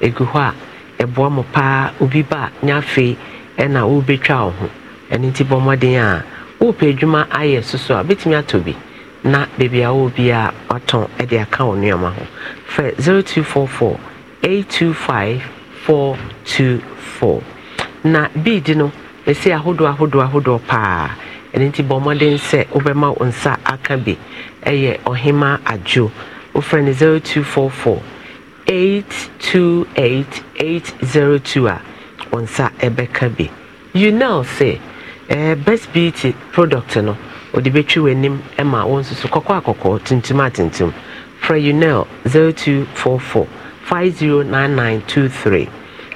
egu hɔ a ɛboa e mo paa obi ba nyafei ɛna ɔrebɛtwa wɔn ɛno nti bɔ mmɔden a wopɛ adwuma ayɛ soso a bɛtumi atɔ bi na baabi a wɔ biara watɔn de aka wɔ nneɛma ho fɛ 0244 825 424 na bead no ɛsi ahodoɔ ahodoɔ ahodoɔ paa ɛno nti bɔ mmɔden sɛ wobɛma wo nsa aka bi ɛyɛ ɔhema adwo wofrɛ no 0244 828802 a wo nsa ɛbɛka bi you know say eh, best beauty product no ɔde bɛtwi w'anim ma wo nso so kɔkɔɔ a kɔkɔɔ tuntum a tuntum frɛ unel 0244 509923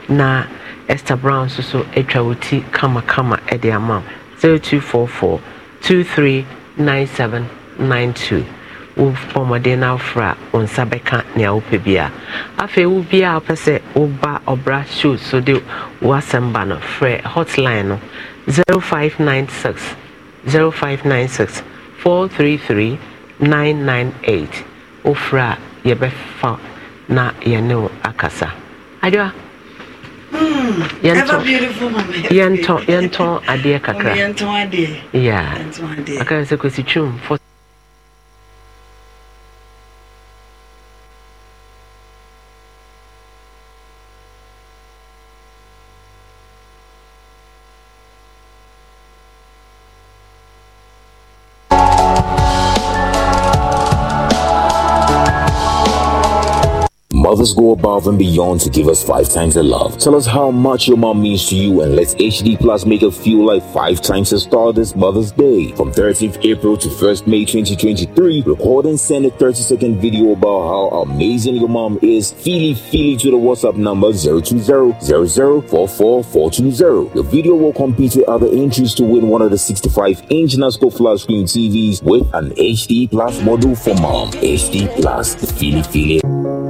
na esther brown nso so atwa wo ti kamakama de ama 0244 239792 wo bɔmmɔden no afra wo nsa bɛka nea wopɛ bi a afei wo biaa wopɛ sɛ woba ɔbra show so de woasɛm ba no frɛ hotline no 0244 0596 0596 433 998 wofra a yɛbɛfa na yɛne wo akasa adwa hmm, yɛntɔn adeɛ kakra yeah. akara sɛ kɔsi twom Mothers go above and beyond to give us five times the love. Tell us how much your mom means to you and let's HD Plus make her feel like five times her star this Mother's Day. From 13th April to 1st May 2023, record and send a 30 second video about how amazing your mom is. Feely feely to the WhatsApp number 020 Your video will compete with other entries to win one of the 65 inch NASCO flat screen TVs with an HD Plus module for mom. HD Plus, the feely feely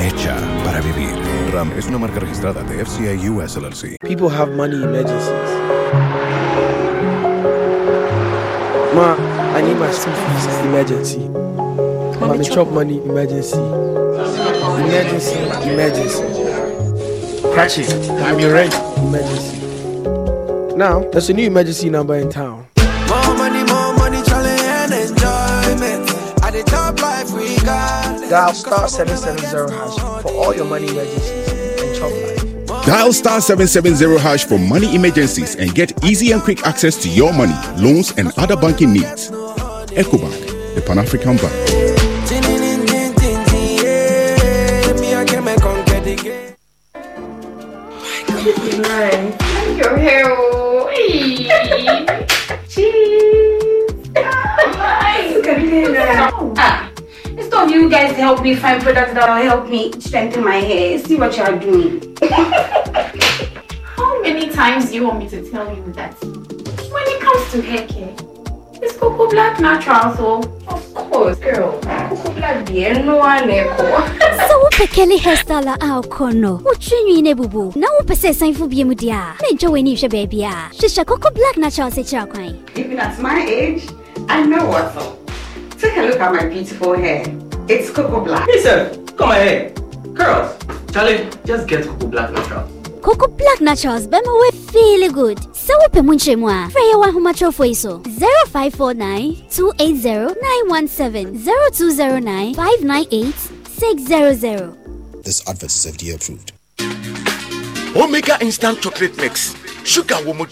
hecha para vivir. Ram es una marca registrada de FCI US LLC. People have money emergencies. Ma, I need my school fees emergency. Mommy, Mommy chop money emergency. Emergency, emergency. Catch it. I'm your rent. Emergency. Now, there's a new emergency number in town. Dial star 770 hash for all your money emergencies and chop life. Dial star 770 hash for money emergencies and get easy and quick access to your money, loans, and other banking needs. EcoBank, the Pan African Bank. Thank you, hero. (laughs) Cheese. Nice. (laughs) of you guys help me find products that will help me strengthen my hair. See what you are doing. How many times do you want me to tell you that? When it comes to hair care, it's Coco Black natural, so of course, girl. Coco Black bien no one (laughs) So wopɛ kɛle hairstyle a wokɔ no wotwe nwii no na wopɛ sɛ ɛsanfo bie mu deɛ a na ɛntwa w'ani hwɛ baabi a hyehyɛ coco black natural sɛ kyerɛ kwan even at my age i know what's take a look at my beautiful hair it's Coco Black. Listen, come here, Girls, Charlie, just get Coco Black natural. Coco Black Naturals bɛ ma we feel good. Sɛ wopɛ mu much more. frɛ yɛ wɔ ahomatorofoɔ so 0549 280 917 0209 598 600. This advert is FDA approved. Omega Instant Chocolate Mix. Sugar wo mu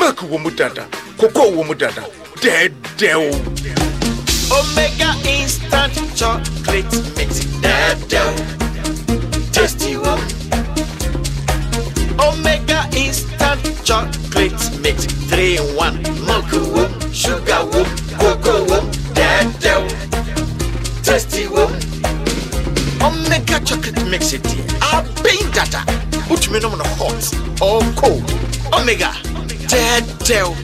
milk wo mu cocoa wo mu Dead, dead. Omega instant chocolate mix. dough, Tasty one. Omega instant chocolate mix. Three in one. Milk whoop, sugar whoop, cocoa whoop. Dado. Tasty one. Omega chocolate mix it here. Ah, I've been data. Put me on hot or cold. Omega. dough,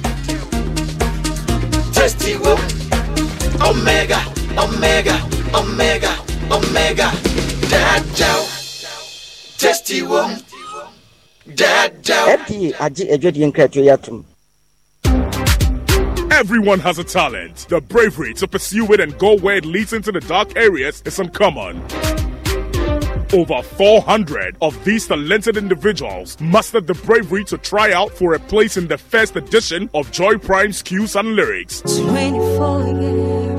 Tasty one. Omega, Omega, Omega, Omega. Dadao. Testy wom. Dadao. FDA Everyone has a talent. The bravery to pursue it and go where it leads into the dark areas is uncommon. Over 400 of these talented individuals mustered the bravery to try out for a place in the first edition of Joy Prime's Cues and Lyrics. 24 years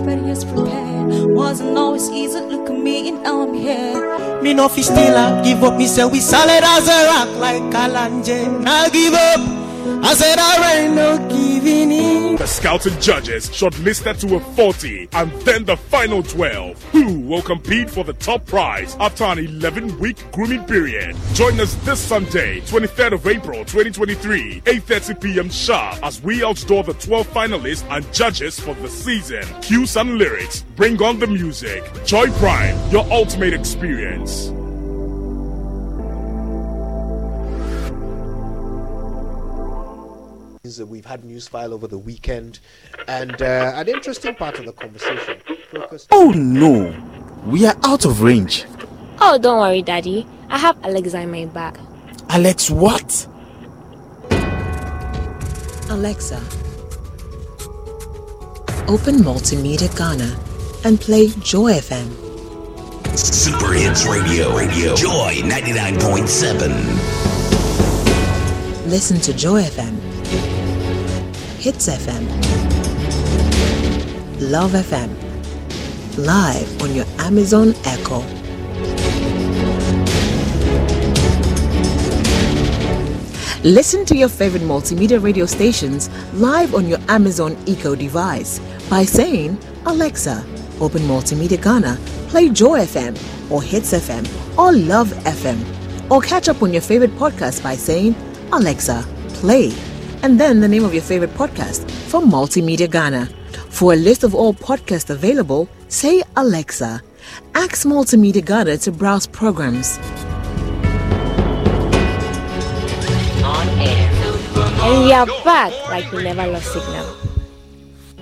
wasn't always easy. Look at me and now I'm here. Me no fish still I give up. Me say we solid as a rock like Kalanje. I give up. I said I no giving in. The scouted judges shortlisted to a 40 and then the final 12 who will compete for the top prize after an 11 week grooming period. Join us this Sunday, 23rd of April 2023, 8.30 p.m. sharp as we outdoor the 12 finalists and judges for the season. Cue and lyrics, bring on the music. Joy Prime, your ultimate experience. news. We've had news file over the weekend, and uh, an interesting part of the conversation. oh no, we are out of range. Oh, don't worry, Daddy. I have Alexa in my bag. Alex, what? Alexa, open Multimedia Ghana and play Joy FM. Super Hits Radio, Radio, Joy 99.7. Listen to Joy FM Hits FM, Love FM, live on your Amazon Echo. Listen to your favorite multimedia radio stations live on your Amazon Echo device by saying, Alexa, open Multimedia Ghana, play Joy FM or Hits FM or Love FM, or catch up on your favorite podcast by saying, Alexa, play and then the name of your favorite podcast from Multimedia Ghana. For a list of all podcasts available, say Alexa. Ask Multimedia Ghana to browse programs. On air. And we are back like we never lost signal.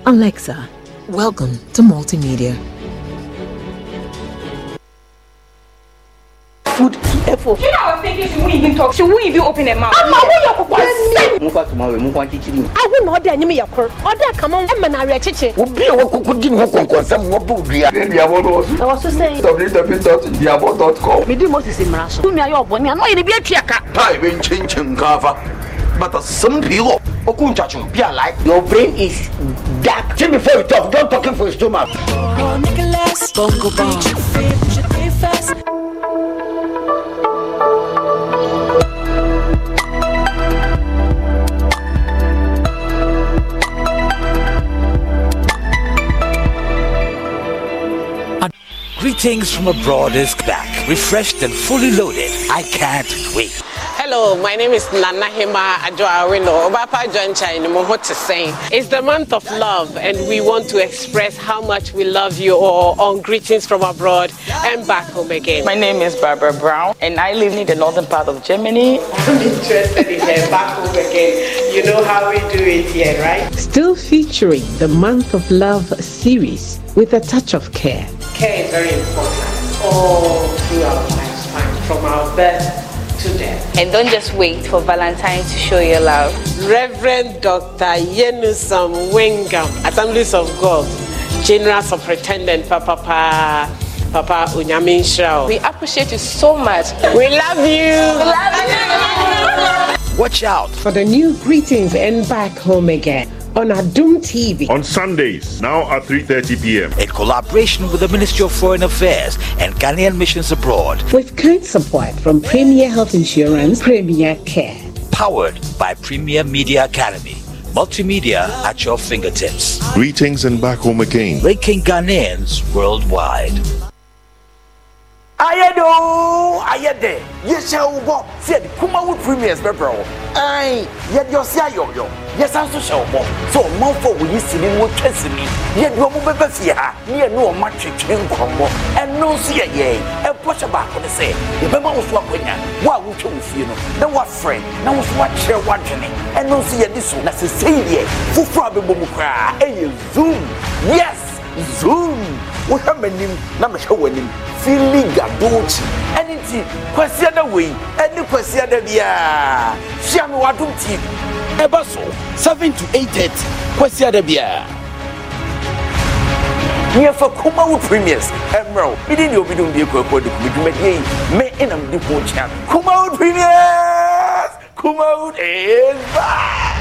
Alexa, welcome to Multimedia. food effort. You know, I was thinking she won't even talk. She won't even open her mouth. I'm away your papa. Move back tomorrow. Move on kitchen. I will not dare me your cur. Order come on. I'm an area chichi. Will be a walk could give me concord. Some more boot. Then the abode I was just saying www.theabode.com. Me do most is in Marasha. Who me are your bonny? I know you'll be a triaka. Tie when changing cover. But a some people. Okun chachu, be alive. Your brain is dark. Jimmy, before you talk, don't talk for his stomach. Oh, Nicholas, Bongo Bong. Greetings from abroad is back, refreshed and fully loaded. I can't wait. Hello, my name is Nana Hema Ajoawino. Obapa It's the month of love, and we want to express how much we love you all on Greetings from Abroad and back home again. My name is Barbara Brown, and I live in the northern part of Germany. I'm interested in the back home again. You know how we do it here, right? Still featuring the Month of Love series with a touch of care care is very important all through our lifespan, from our birth to death. and don't just wait for Valentine to show your love. Reverend Dr. Yenusam Wengam, Assemblies of God, General Superintendent Papa Papa. Papa Unyamin We appreciate you so much. We love you. We love you. Watch out for the new greetings and back home again on Adum TV on Sundays now at 3:30 p.m. in collaboration with the Ministry of Foreign Affairs and Ghanaian Missions Abroad with kind support from Premier Health Insurance Premier Care powered by Premier Media Academy multimedia at your fingertips greetings and back home again linking Ghanaians worldwide ayɛ de o ayɛ de yɛhyɛ wo bɔ sɛ yɛde kumawo premiers bɛbrɛ wo ɛn yɛde ɔse ayɔyɔ yɛsan so hyɛ wo bɔ sɛ ɔmanfo a wɔyi sini no wɔtwa sini yɛde ɔmo bɛbɛ fie ha ne yɛne ɔma twetwe nkɔmmɔ ɛno nso yɛ yɛn ɛbɔhyɛ baako ne sɛ yɛbɛma wo so akɔnya wo a wotwa wo fie no na woafrɛ na wo so woakyerɛ woadwene ɛno nso yɛde so na sɛsɛi deɛ foforɔ a bɛbɔ mu koraa ɛyɛ zoom yes zoom wohwɛ m'anim na mehwɛ w'anim fili gadoti ɛne nti kwasiada wei ɛne kwasiada biaa hyia me w'adom tv ɛba so 7 to 830 kwasiada biaa nyɛfa kumawo premiers ɛmmerɛ wo mede deɛ obidom bie kɔakɔ de kumadwumadeɛ yi me ɛnam de ho kyea kumawo premiers kumawo is back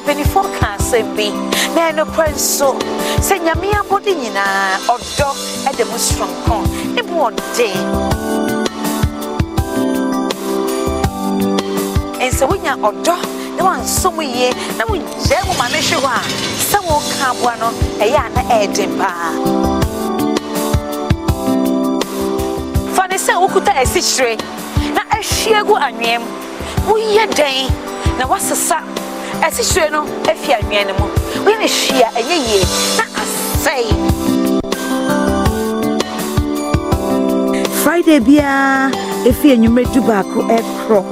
mpanyinfoɔ ka asɛm bi na ɛnokorɛ nso sɛ nyame abɔde nyinaa ɔdɔ ɛde mu soronko ne bu ɔden ɛnsɛ wonya ɔdɔ na wansom yie na wogyae mu ma no hwe hɔ a sɛ wɔka aboa no ɛyɛ a na ɛɛden paa fa ne sɛ wokuta asikyire na ahwie gu anweɛm woyɛ dɛn na woasesa ɛsihyire no efi anwea ne mu wɔn ne hwia ɛnyɛ yie na asɛe. friday biara efi enyimire du baako ɛkorɔ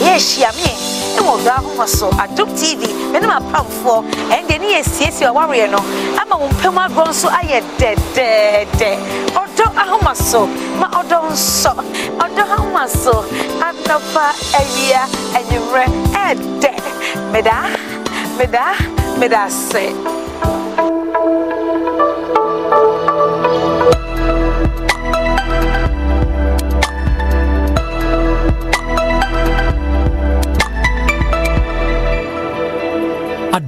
ɛyɛ ehyia mii wɔ ɔdɔ ahoma so adom tv mene mapamfoɔ ɛndeɛ ne yɛsiesie awareɛ no ama wo mpam agorɔ nso ayɛ dɛdɛɛdɛ ɔdɔ ahoma so ma ɔdɔ nsɔ ɔdɔ ahoma so anɔpa awia anwummerɛ ɛɛdɛ meda meda meda ase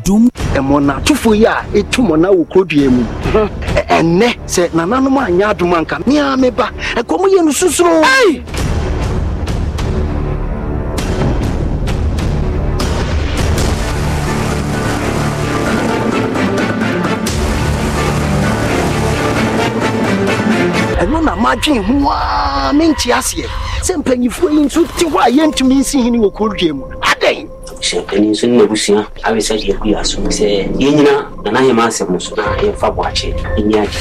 adom. ɛmɔ n'atufo yi a etu mɔ na wɔ kuro dua mu ɛnɛ sɛ nananom anya adom anka mia mi ba ɛkɔm yɛ no susuro. ɛno na madwen ho a mente aseɛ sɛ mpanyimfoɔ yi nso te hɔ a yɛntumi nsi hene wɔ kuro dua mu hyɛnkani nso ne n'abusua awe sɛ deɛ ɛgu yɛ asom sɛ yɛnyina nana yɛma asɛm so na yɛmfa boakye ɛni agye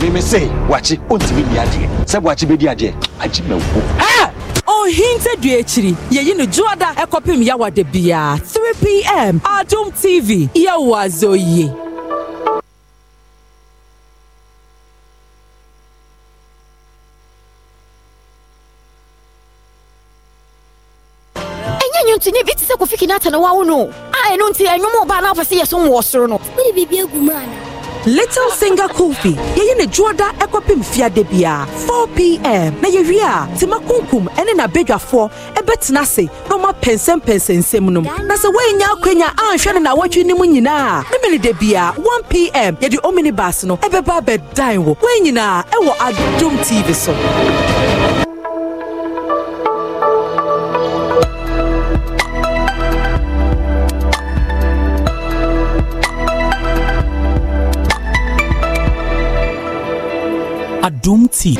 mímí sè wàchi ontìmí ni adìẹ sẹ wàchi bẹ di adìẹ ají mẹ wò. ẹ ohin tẹ du ekyiri yẹyi ni juada ẹkọ pim yawa de bia three pm adum tv yẹ wà zọ yìí. nti ne bi te sɛ kofi kinata na wawo no a ɛno nti ɛnwom ɔbaa na wopɛ sɛ yɛsom wɔ soro no wode biribi agu mu ana Little Singer Kofi. Yeye ne juoda ekopim fiade bia. 4 p.m. Na yewie a tima kunkum ene na bedwafo ebetena se na ma pensem pensensem nom. Na se wenya akwenya anhwe ne na watwe nim nyina. Emily de bia 1 p.m. Ye di omnibus no ebeba bedan wo. Wenyina ewo Adom TV so. dum tea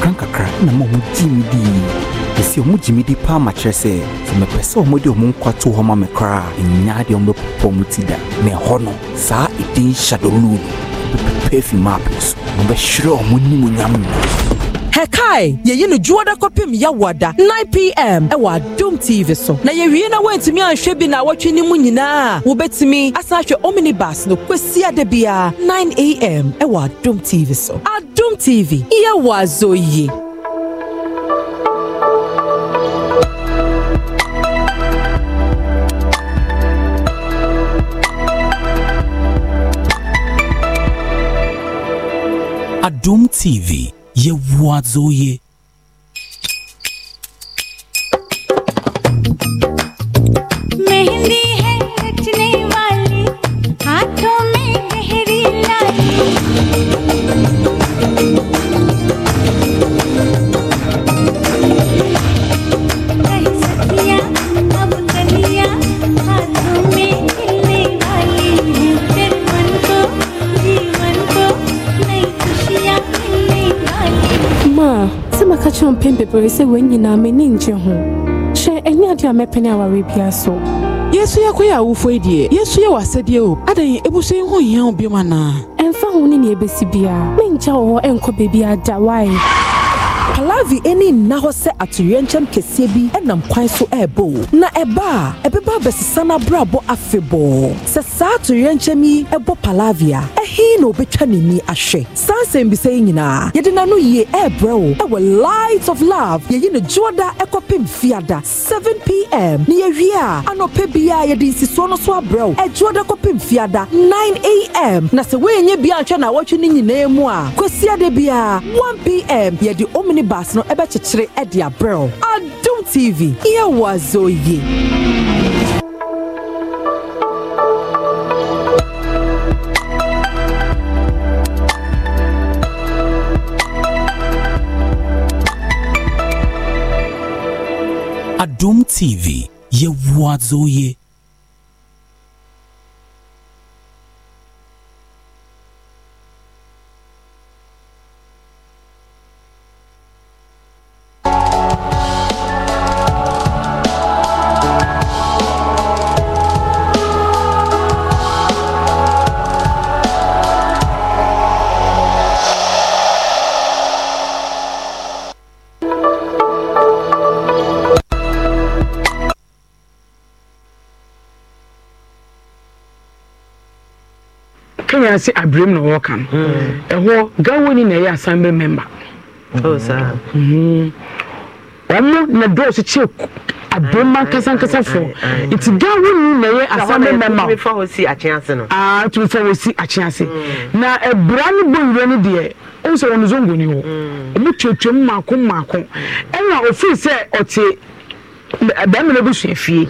krankakra na ma ɔmo gye me dii ɛsi ɔmo gye di paa ma kyerɛ sɛ sɛ mepɛ sɛ ɔmo de ɔmo nkwa to hɔ ma me koraa ɛnya deɛ ɔmo bɛpopɔ ɔmo ti da na ɛhɔ no saa ɛdin hyadɔluu no bɛpɛpɛ afi maapɛ so ɔmo bɛhwerɛ ɔmo nimonyam nyinaa hɛkae yɛyi no dwoɔ da kɔpem yɛwɔ da 9 pm ɛwɔ e adom tv so na yɛwie na woantumi anhwɛ bi na awɔtwe no mu nyinaa a wobɛtumi asan ahwɛ omnibus no kwasi ada biara 9 am ɛwɔ e adom tv so adom tv yɛwɔ azɔ yie Doom TV Ye wadzou ye. bebree sɛ wɔn nyinaa m'ani ngye ho hyɛ ɛnyɛ adeɛ a mɛpene aware bia so yesu yɛ kɔyɛ awofo yi deɛ yesu yɛ w'asɛdeɛ o adɛn ebusu yi ho hia wo biom anaa ɛmfa ho ne nea ebesi biara menkyɛ wɔ hɔ ɛnkɔ baabi ada wae palavi ɛne nna hɔ sɛ atoyerɛnkyɛm kɛseɛ bi ɛnam kwan so ɛrebɔ na ɛba a ɛbɛba abɛsesa n'abrabɔ afebɔɔ sɛ saa atoyerɛnkyɛm yi ɛbɔ palavi a ɛhe na obɛtwa n'ani ahwɛ saa nsɛm bisɛ yi nyinaa yɛde n'ano yie ɛrebrɛ wo ɛwɔ light of love yɛyi ne dwoɔda ɛkɔpem fiada seven pm ne yɛwie a anɔpɛ biara yɛde nsisoɔ no so abrɛ wo ɛdwoɔda kɔpem fiada 9am na sɛ woɛnyɛ bia nhwɛ na awɔtwe no nyinaa mu a kwasiada biara 1pm yɛde omni bars no ɛbɛkyekyere ɛde abrɛw adum tv yɛwɔ azɔ yie. Adum TV, ye wazoye. anaasɛ abiram na wɔka no hmm. ɛhɔ gawoni na ɛyɛ asambe member oh, hmm. ɔmo na dɔɔso kyɛ abirima nkasankasa fo nti gawoni na ɛyɛ asambe member tumi fa wɔ si akyen ase hmm. na ɛbura no bɔ ni no deɛ ɔmo sɛ wɔn zongo ni hɔ ɔmo tuatua mu mako mako ɛna ofin sɛ ɔte. bɛrima na bụ fie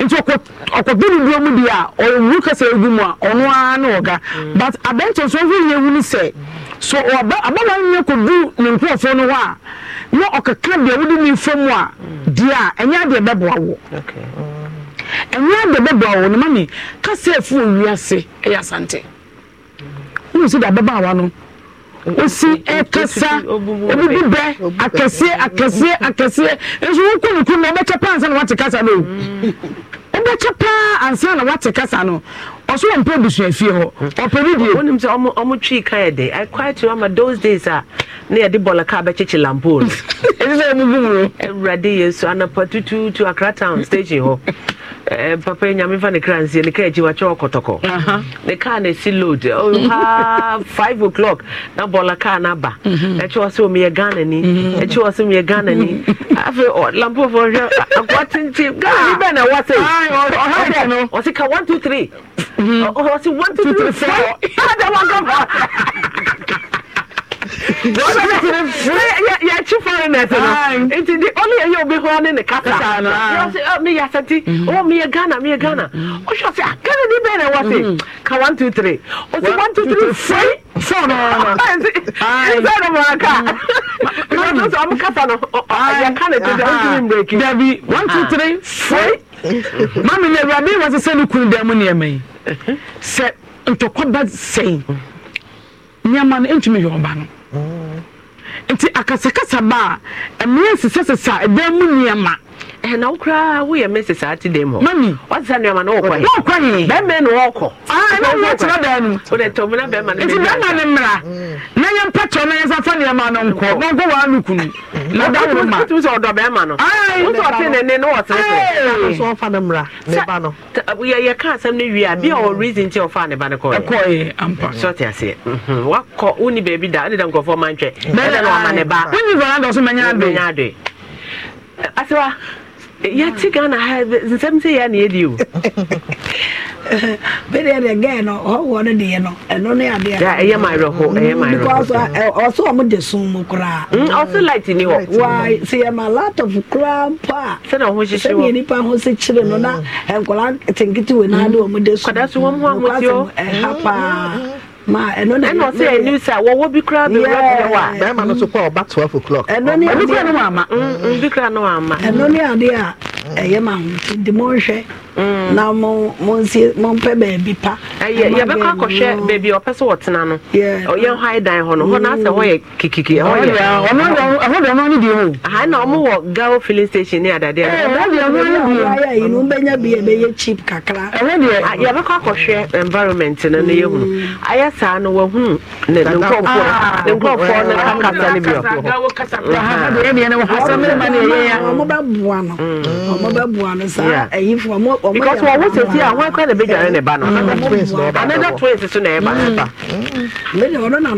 nti ɔkɔdo ne duro mu deɛ a ɔwuru kasa egu mu a ɔno na ọga but abɛnta nso ɔhuri ehu ne sɛ so ɔba abala nyɛ kɔdu ne nkorɔfoɔ no hɔ a na ɔkeka ne a di a ɛnyɛ ɛnyɛ ne ma efu owi ase ɛyɛ asante de ababaawa no. wosi ɛkasa obibi bɛ akɛseɛ akɛseɛ akɛseɛ nso wokɔ na wobɛkyɛ paa ansa na wate kasa no wobɛkyɛ hmm. paa ansa na wate kasa no ɔso wɔ mpɛ abusua fie hɔ ɔpɛ bi die wonim sɛ ɔmo twii ka yɛ de i quite remember those days a na yɛde bɔlɔ kaa bɛkyekye lampoo no ɛsɛ sɛ ɔmo bum no awurade yesu anapa tutuutu akra town station hɔ Eh, papa nyame fa ne kra nsie ne kaa akyi wakyɛ ɔkɔtɔkɔ ne kaa na ɛsi load oh, ha (laughs) five o'clock na bɔla kaa mm-hmm. eh, mm-hmm. eh, no aba ɛkyɛ wɔ sɛ omiyɛ ghana ni ɛkyɛ wɔ sɛ omiyɛ ghana ni afei lampofoɔ hwɛ akoa tenten ghana ni bɛn na ɛwɔ sɛ ɔsɛ ka one two three ɔsɛ mm-hmm. oh, oh, one two three four ada wakɔ yɛkyi foreigners no nti de ɔne yɛyɛ obi hɔ ne ne kasa meyɛ asɛnti meyɛ ghana meyɛ ghana wohwɛ sɛ ghana ne bɛɛ na ɛwɔ se ka 1 2 3 ɔsi 1 2 3 fri fone nsɛno maka sɛ ɔmo kasa no yɛka ne tɛdɛ wontumi mbreki dabi 1 2 3 fri mame ne awurade wɔ sɛ sɛ ne kunu dɛ mu nneɛma yi sɛ ntɔkwa ba sɛi nneɛma no ɛntumi yɛ ɔba no nti akasakasa ba a mmerɛ sesasesa dan mu nneɛma na wo koraa woyɛ mese saa te dɛm hɔ mami wase sa nnuama no wɔkɔ he wɔkɔ no wɔkɔ ɛna woyɛ tena daa no wode tɔm na bɛma no nti mm. na yɛ mpa tɔ na yɛsa fa nneɛma no nkɔ na nkɔ waa no kunu na da wo ma wotum sɛ ɔdɔ bɛma no wosɛ ɔte ne ne na wɔsere sɛ so ɔfa no mmra ne ba no yɛka asɛm no wie a bia ɔ mm. reason nti ɔfaa ne ba no kɔɛkɔɛ ampa sɛ ɔte aseɛ mhm. wakɔ woni baabi da wode da nkɔfoɔ mantwɛ ɛdɛ na ɔma ne ba wonyi vanadɔ so mɛnya adoe asewa yɛte ghana ha nsɛm sɛ yɛa ne yɛdi o bɛdeɛ deɛ gɛ no ɔwɔ no deɛ no ɛno ne adeɛ ɛyɛ mawerɛho ɛyɛ mawerɛho ɔsɛ ɔmo de e e uh, e, som mu koraa mm, ɔsɛ light ni hɔ wa sɛ of laptop koraa mpo a sɛna ɔho hyehye wɔ sɛdeɛ nipa ho se kyerɛ no na mm. nkɔla tenketewe no ade ɔmo de som kɔda so wɔm ho ahoteɛ ha paa mm-hmm ma ɛno na ɛna ɔsɛ ɛni sɛ wɔwɔ bi kura bi wura bi wɔ a. bɛrima no so kɔ ɔba twelve o'clock. ɛno ni adeɛ ɛno ni adeɛ a ɛyɛ ma ho nti de mo nhwɛ na mo mo nsi mo mpɛ baabi pa. ɛyɛ yɛbɛkɔ akɔhwɛ baabi ɔpɛ sɛ wɔtena no ɔyɛ hɔ dan hɔ no hɔ n'asɛ hɔ yɛ kikiki ɛhɔ yɛ ɔno deɛ ɔno deɛ ɔno deɛ o. aha na ɔmo wɔ gawo filling station ne adadeɛ. ɛɛ ɔno deɛ ɔno deɛ o. ayɛ yi no bɛnya bi ɛbɛyɛ cheap kakra. ɛno deɛ yɛbɛkɔ akɔhwɛ environment no ne yɛ hunu ayɛ saa no wɔhunu ne nkɔfoɔ ne nkɔfoɔ ne kakasa ne bi wɔ hɔ ọbẹ̀bùwà ni sá ẹ̀yin fún ọmọ ọmọ yẹn. because wọn wọ́n sèse à wọ́n kọ́ ẹ̀ bẹ́ẹ̀ jẹ́ ẹ̀ ba náà mm. another twins so na ẹ̀ ba náà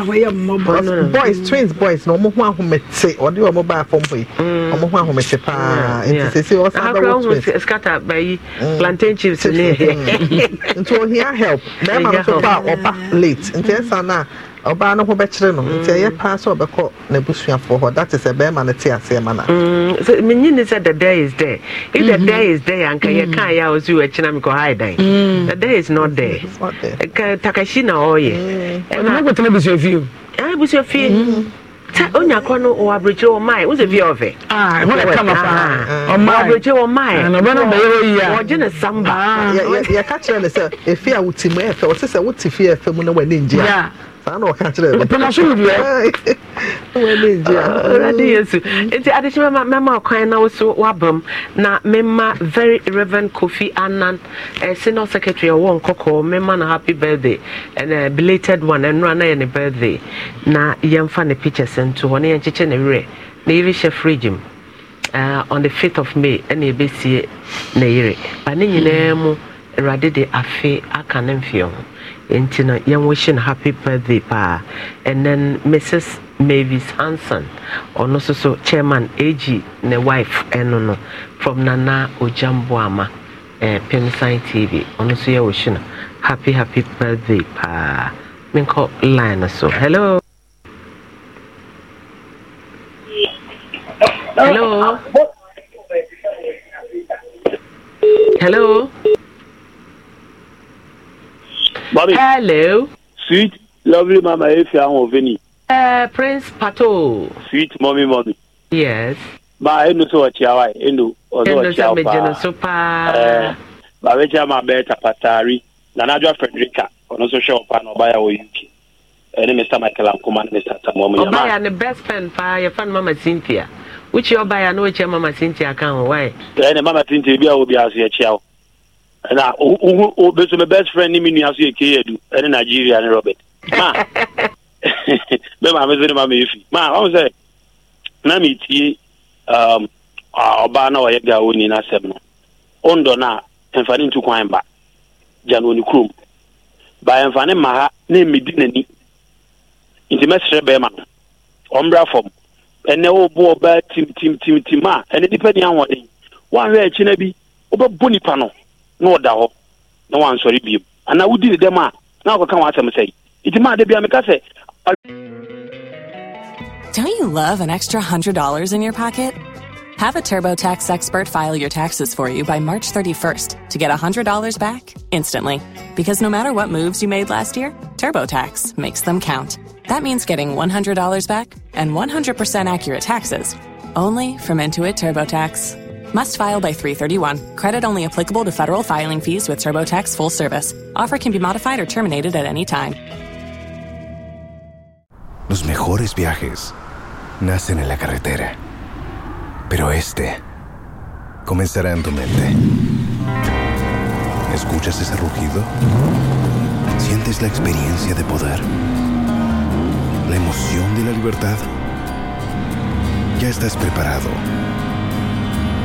wọ́n boys twins boys na ọmọ hún ahomete ọdí ọmọ bá fọ́ mọ́ yìí ọmọ hún ahomete paa nti sèse ọ̀sán bẹ́ẹ̀ wọ́n twins. akọrọ scatter bẹyì plantain chips ni. Mm. nti ohia help bẹẹ ma n so pa ọba late nti ẹ san náà ɔbaa no ho bɛkyerɛ no nti ɛyɛ paa sɛ ɔbɛkɔ n'abusuafoɔ hɔ that is a bɛrima no te aseɛ ma na. Mm, menyi ne sɛ the day is there if the mhm. day is there anka yɛ mm. kaa yɛ a ɔsi wɔ akyi na mi kɔ ha dan mm. the day is not there takashi na ɔyɛ. ɛna ko tena busua fie o. ɛna busua fie. sɛ onya kɔ no wɔ aburokyire wɔ mae wosɛ ah, fie ɔfɛ aburokyire wɔ maeɔgye ne samba ah. yɛka kyerɛ ne sɛ ɛfie a wotimu ɛfɛ ɔte sɛ wote fie ɛfɛ mu na w'ani ngyea saa na ɔka kyerɛ nti adekyɛ mɛma ɔkwan na wo so na mema very reverend kofi Annan, eh, senior secretary ɔwɔ nkɔkɔɔ mema na happy birthday ɛn uh, belated one ɛnora na yɛ ne birthday na yɛmfa ne pictures nto hɔ na yɛnkyekyɛ ne werɛ na yɛbi hyɛ fridge mu uh, on the 5th of may ɛna yɛbɛsie ne yere ba ne nyinaa mu mm awurade de afe aka ne mfeɛ ho nti no yɛnwo hye no happy birthday paa and then mrs mavis hanson ɔno nso so chairman ag ne wife ɛno no from nana ogyamboama eh, pemsan tv ɔno nso yɛwo hye no happy happy birthday paa menkɔ line no so hello hello hello Mommy. Hello. Sweet, lovely mama Efia Oveni. Uh, Prince Pato. Sweet mommy, mommy. Yes. Ma, enu so wa chiawa, enu. Ozo wa chiawa. Enu so mejeno so pa. Eh, ba wecha ma beta patari. Nanajwa Frederica, ono so show pa no baya wo yuki. Eh, Ene Mr. Michael Ankuma, Mr. Samuel Munyama. Obaya ne best friend pa, your friend Mama Cynthia. Which your buyer no which Mama Cynthia account, why? Ene eh, Mama Cynthia, biya wo biya so ya chiawa na ohu obeso my best friend ni mi nua so yɛ kee edu ɛne nigeria ne robert ma bɛ maame so ne maame efi ma wɔn sɛ na mi tie um, ɔbaa na ɔyɛ gawo ni n'asɛm no ondo na mfani ntu kwan ba gya na oni kurom ba mfani ma ha na emedi n'ani nti mɛsrɛ bɛrima no ɔmbra fam ɛnɛ ɔbɔ ɔbaa tim tim tim tim a ɛne nipa ni ahoɔden wɔn ahwɛ akyi na bi ɔbɛbɔ nipa no. na ɔda hɔ na wansɔre bio anaa wodi ne dɛm a na wakɔka w'asɛm sɛe nti maa da bia meka sɛ Don't you love an extra $100 in your pocket? Have a TurboTax expert file your taxes for you by March 31st to get $100 back instantly. Because no matter what moves you made last year, TurboTax makes them count. That means getting $100 back and 100% accurate taxes only from Intuit TurboTax. Must file by 331. Credit only applicable to federal filing fees with TurboTax full service. Offer can be modified or terminated at any time. Los mejores viajes nacen en la carretera. Pero este comenzará en tu mente. ¿Escuchas ese rugido? ¿Sientes la experiencia de poder? ¿La emoción de la libertad? Ya estás preparado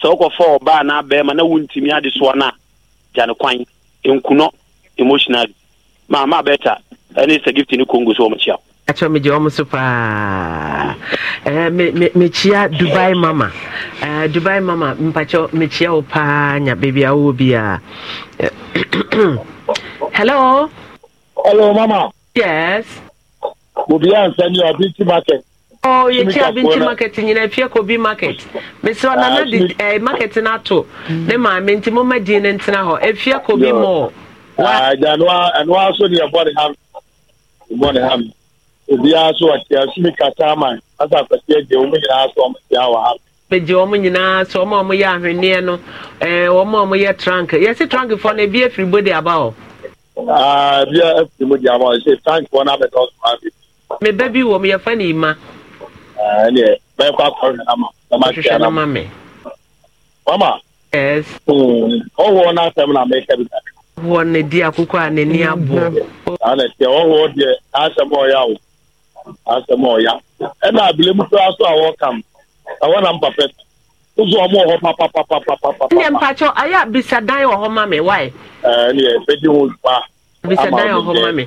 sɛ wokɔfa ɔbaa na abɛɛma na wontumi ade no a gya kwan nkunɔ emotionally maama bɛta ɛne sɛ gift ne congo so wɔmkyia wo megye ɔm so paa mekyia dubai mama dubai mama mpakyɛ mekyia wo paa nya baabi a wowɔ bi a (clears throat) hello hello mama yes obiaa nsɛ ne ɔbinti market Oh, ah, you can't eh, be to market mm. in a fear could be market. Miss na did a market in Ato. Nema, Mintimo e Medin ah, and Tanaho, a fear could be more. I don't know, and also the body ham. Body ham. Obi aso ati asumi kata man asa akwati eje omu nyinaa aso ọmọ ti awa ha. Bèjì ọmọ nyinaa sọ ọmọ ọmọ yẹ ahwenneɛ no ɛɛ eh, ọmọ ọmọ yɛ trank yɛsi trank fɔ no ebi efiri bodi aba hɔ. Aa ah, ebi efiri bodi aba hɔ ɛsɛ trank fɔ n'abɛka ɔsùn abi. Mɛ bɛ wɔ mu yɛfa ne ima. ɛnɛ bɛɛ kɔ akɔrɔ nana ma bɛɛ ma se O ma mama ɔwɔ n'asɛm na mɛ kɛbi ka wɔ ne di akoko a n'ani abɔ. ana tiɛ ɔwɔ deɛ asɛm ɔya o asɛm a sɛ m'ɔ ya o, a sɛ m'ɔ ya. ɛwɔ na bile muso ya sɔ awɔ awɔ na mpapɛ ụzọ ọmụ ọhọ papapapapapa. ndị mpachọ anyị abisa dan mɛ mami wae. ɛɛ ne yɛ bɛ di wọn pa. abisa dan ọhọ mɛ.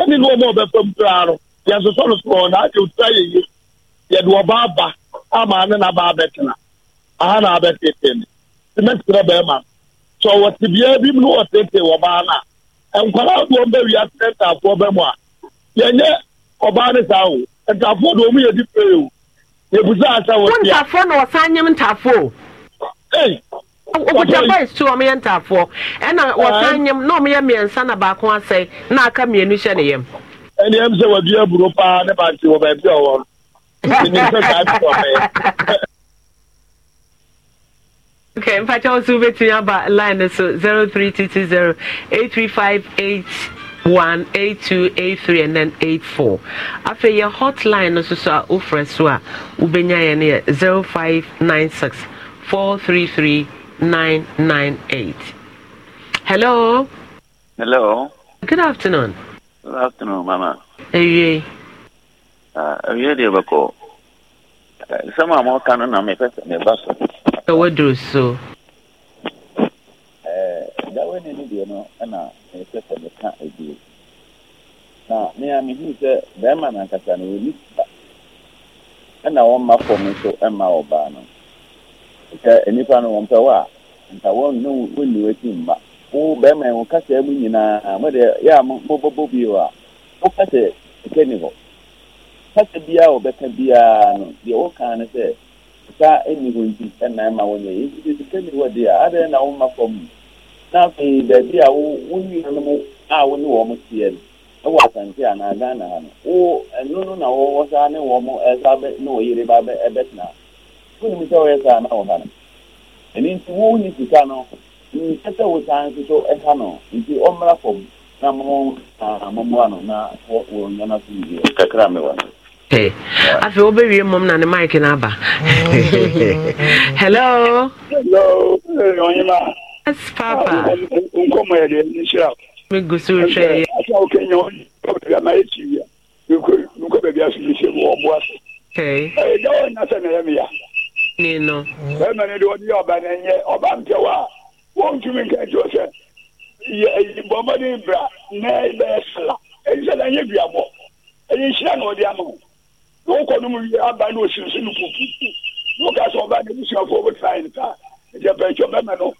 ɛne ne ɔma ɔbɛfam koraa no yɛsosɔ no soɔ na agye otua yɛye yɛde ɔba aba ama ne n'aba abɛtena aha na abɛtete ne tìmɛtìrɛ bɛrima sɛ ɔwɔ tibia bi mu na ɔtete ɔbaa no nkwadaa wia ntaafoɔ bɛ a ɔbaa ne saa o ntaafoɔ ɔmu yɛ o wɔ tia. wọn ntaafoɔ na ɔsan nyɛ ntaafoɔ. wokuta boys tu ɔmo yɛ ntaafoɔ ɛna wɔsan nyɛm na ɔmo yɛ mmiɛnsa na baako asɛe na aka mmienu hyɛ ne yam. ɛni ɛmu sɛ wadu aburo paa ne ba ti wɔ baabi a wɔn ɛni sɛ saa bi wɔ bɛyɛ. Okay, in fact, I was over to about line so 0320 835 one eight two eight three and then eight four afei yɛ hotline no so so ubenya wofrɛ so zero five nine six four three three nine nine eight. Hello. Hello. Good afternoon. Good afternoon, Mama. Ewie. Ewie deɛ bɛkɔ. Nsɛm a mɔka no na mepɛ sɛ meba so. Ɛwɔ duro so. Dawe ne ne deɛ no ɛna mepɛ sɛ meka ebie. Na ne a mehu sɛ bɛrima nankasa no wɔni ba. Ɛna wɔn mma fɔm nso ɛma ɔbaa no. nke nnipa no wɔmpɛ wo a nka wɔnne wɔnni w'akyi mma wo bɛrima wo kasa mu nyinaa mode yɛ a mobɔbɔ bio a wo kasa ɛka ni hɔ kasa biara wɔbɛka biara no deɛ wɔkaa no sɛ sika ɛni hɔ nti ɛnan ma wɔnyɛ yɛ nti sika ni hɔ deɛ adɛn na na a a ne wɔn no ɛwɔ asante ha no na wɔwɔ saa ne wɔn ɛsa bɛ ne ba funu mi sɛ ɔyɛ saa na ɔha no ɛni nti wɔn nyi sika no nkyɛ sɛ wosan nso ɛha no nti ɔmmra fam na mo na momoa no na wɔn nyɛ no so yie kakra mi wɔ no. afei wobɛwie mmom na ne mike no aba hello yes papa nkɔmmɔ yɛdeɛ nhyira megu so hwɛɛ wokɛnya ɔnaɛtiwia nkɔ baabi asomɛhyɛ mu ɔboa so ɛgya wɔ nya sɛ na ɛyɛ meya na no. bẹẹma ni de wọn ọba náà yẹ ọba mpẹwọ a wọn tún mi nka ti o sẹ yẹ bọmọdé bra náà bẹẹ sẹlá èyí yẹ bi èyí na ọdí ama o wọn kọ nomu yẹ aba ní osinsin ní pupu wọn kà sọ ọba ní ebusuafo ọbẹ tàn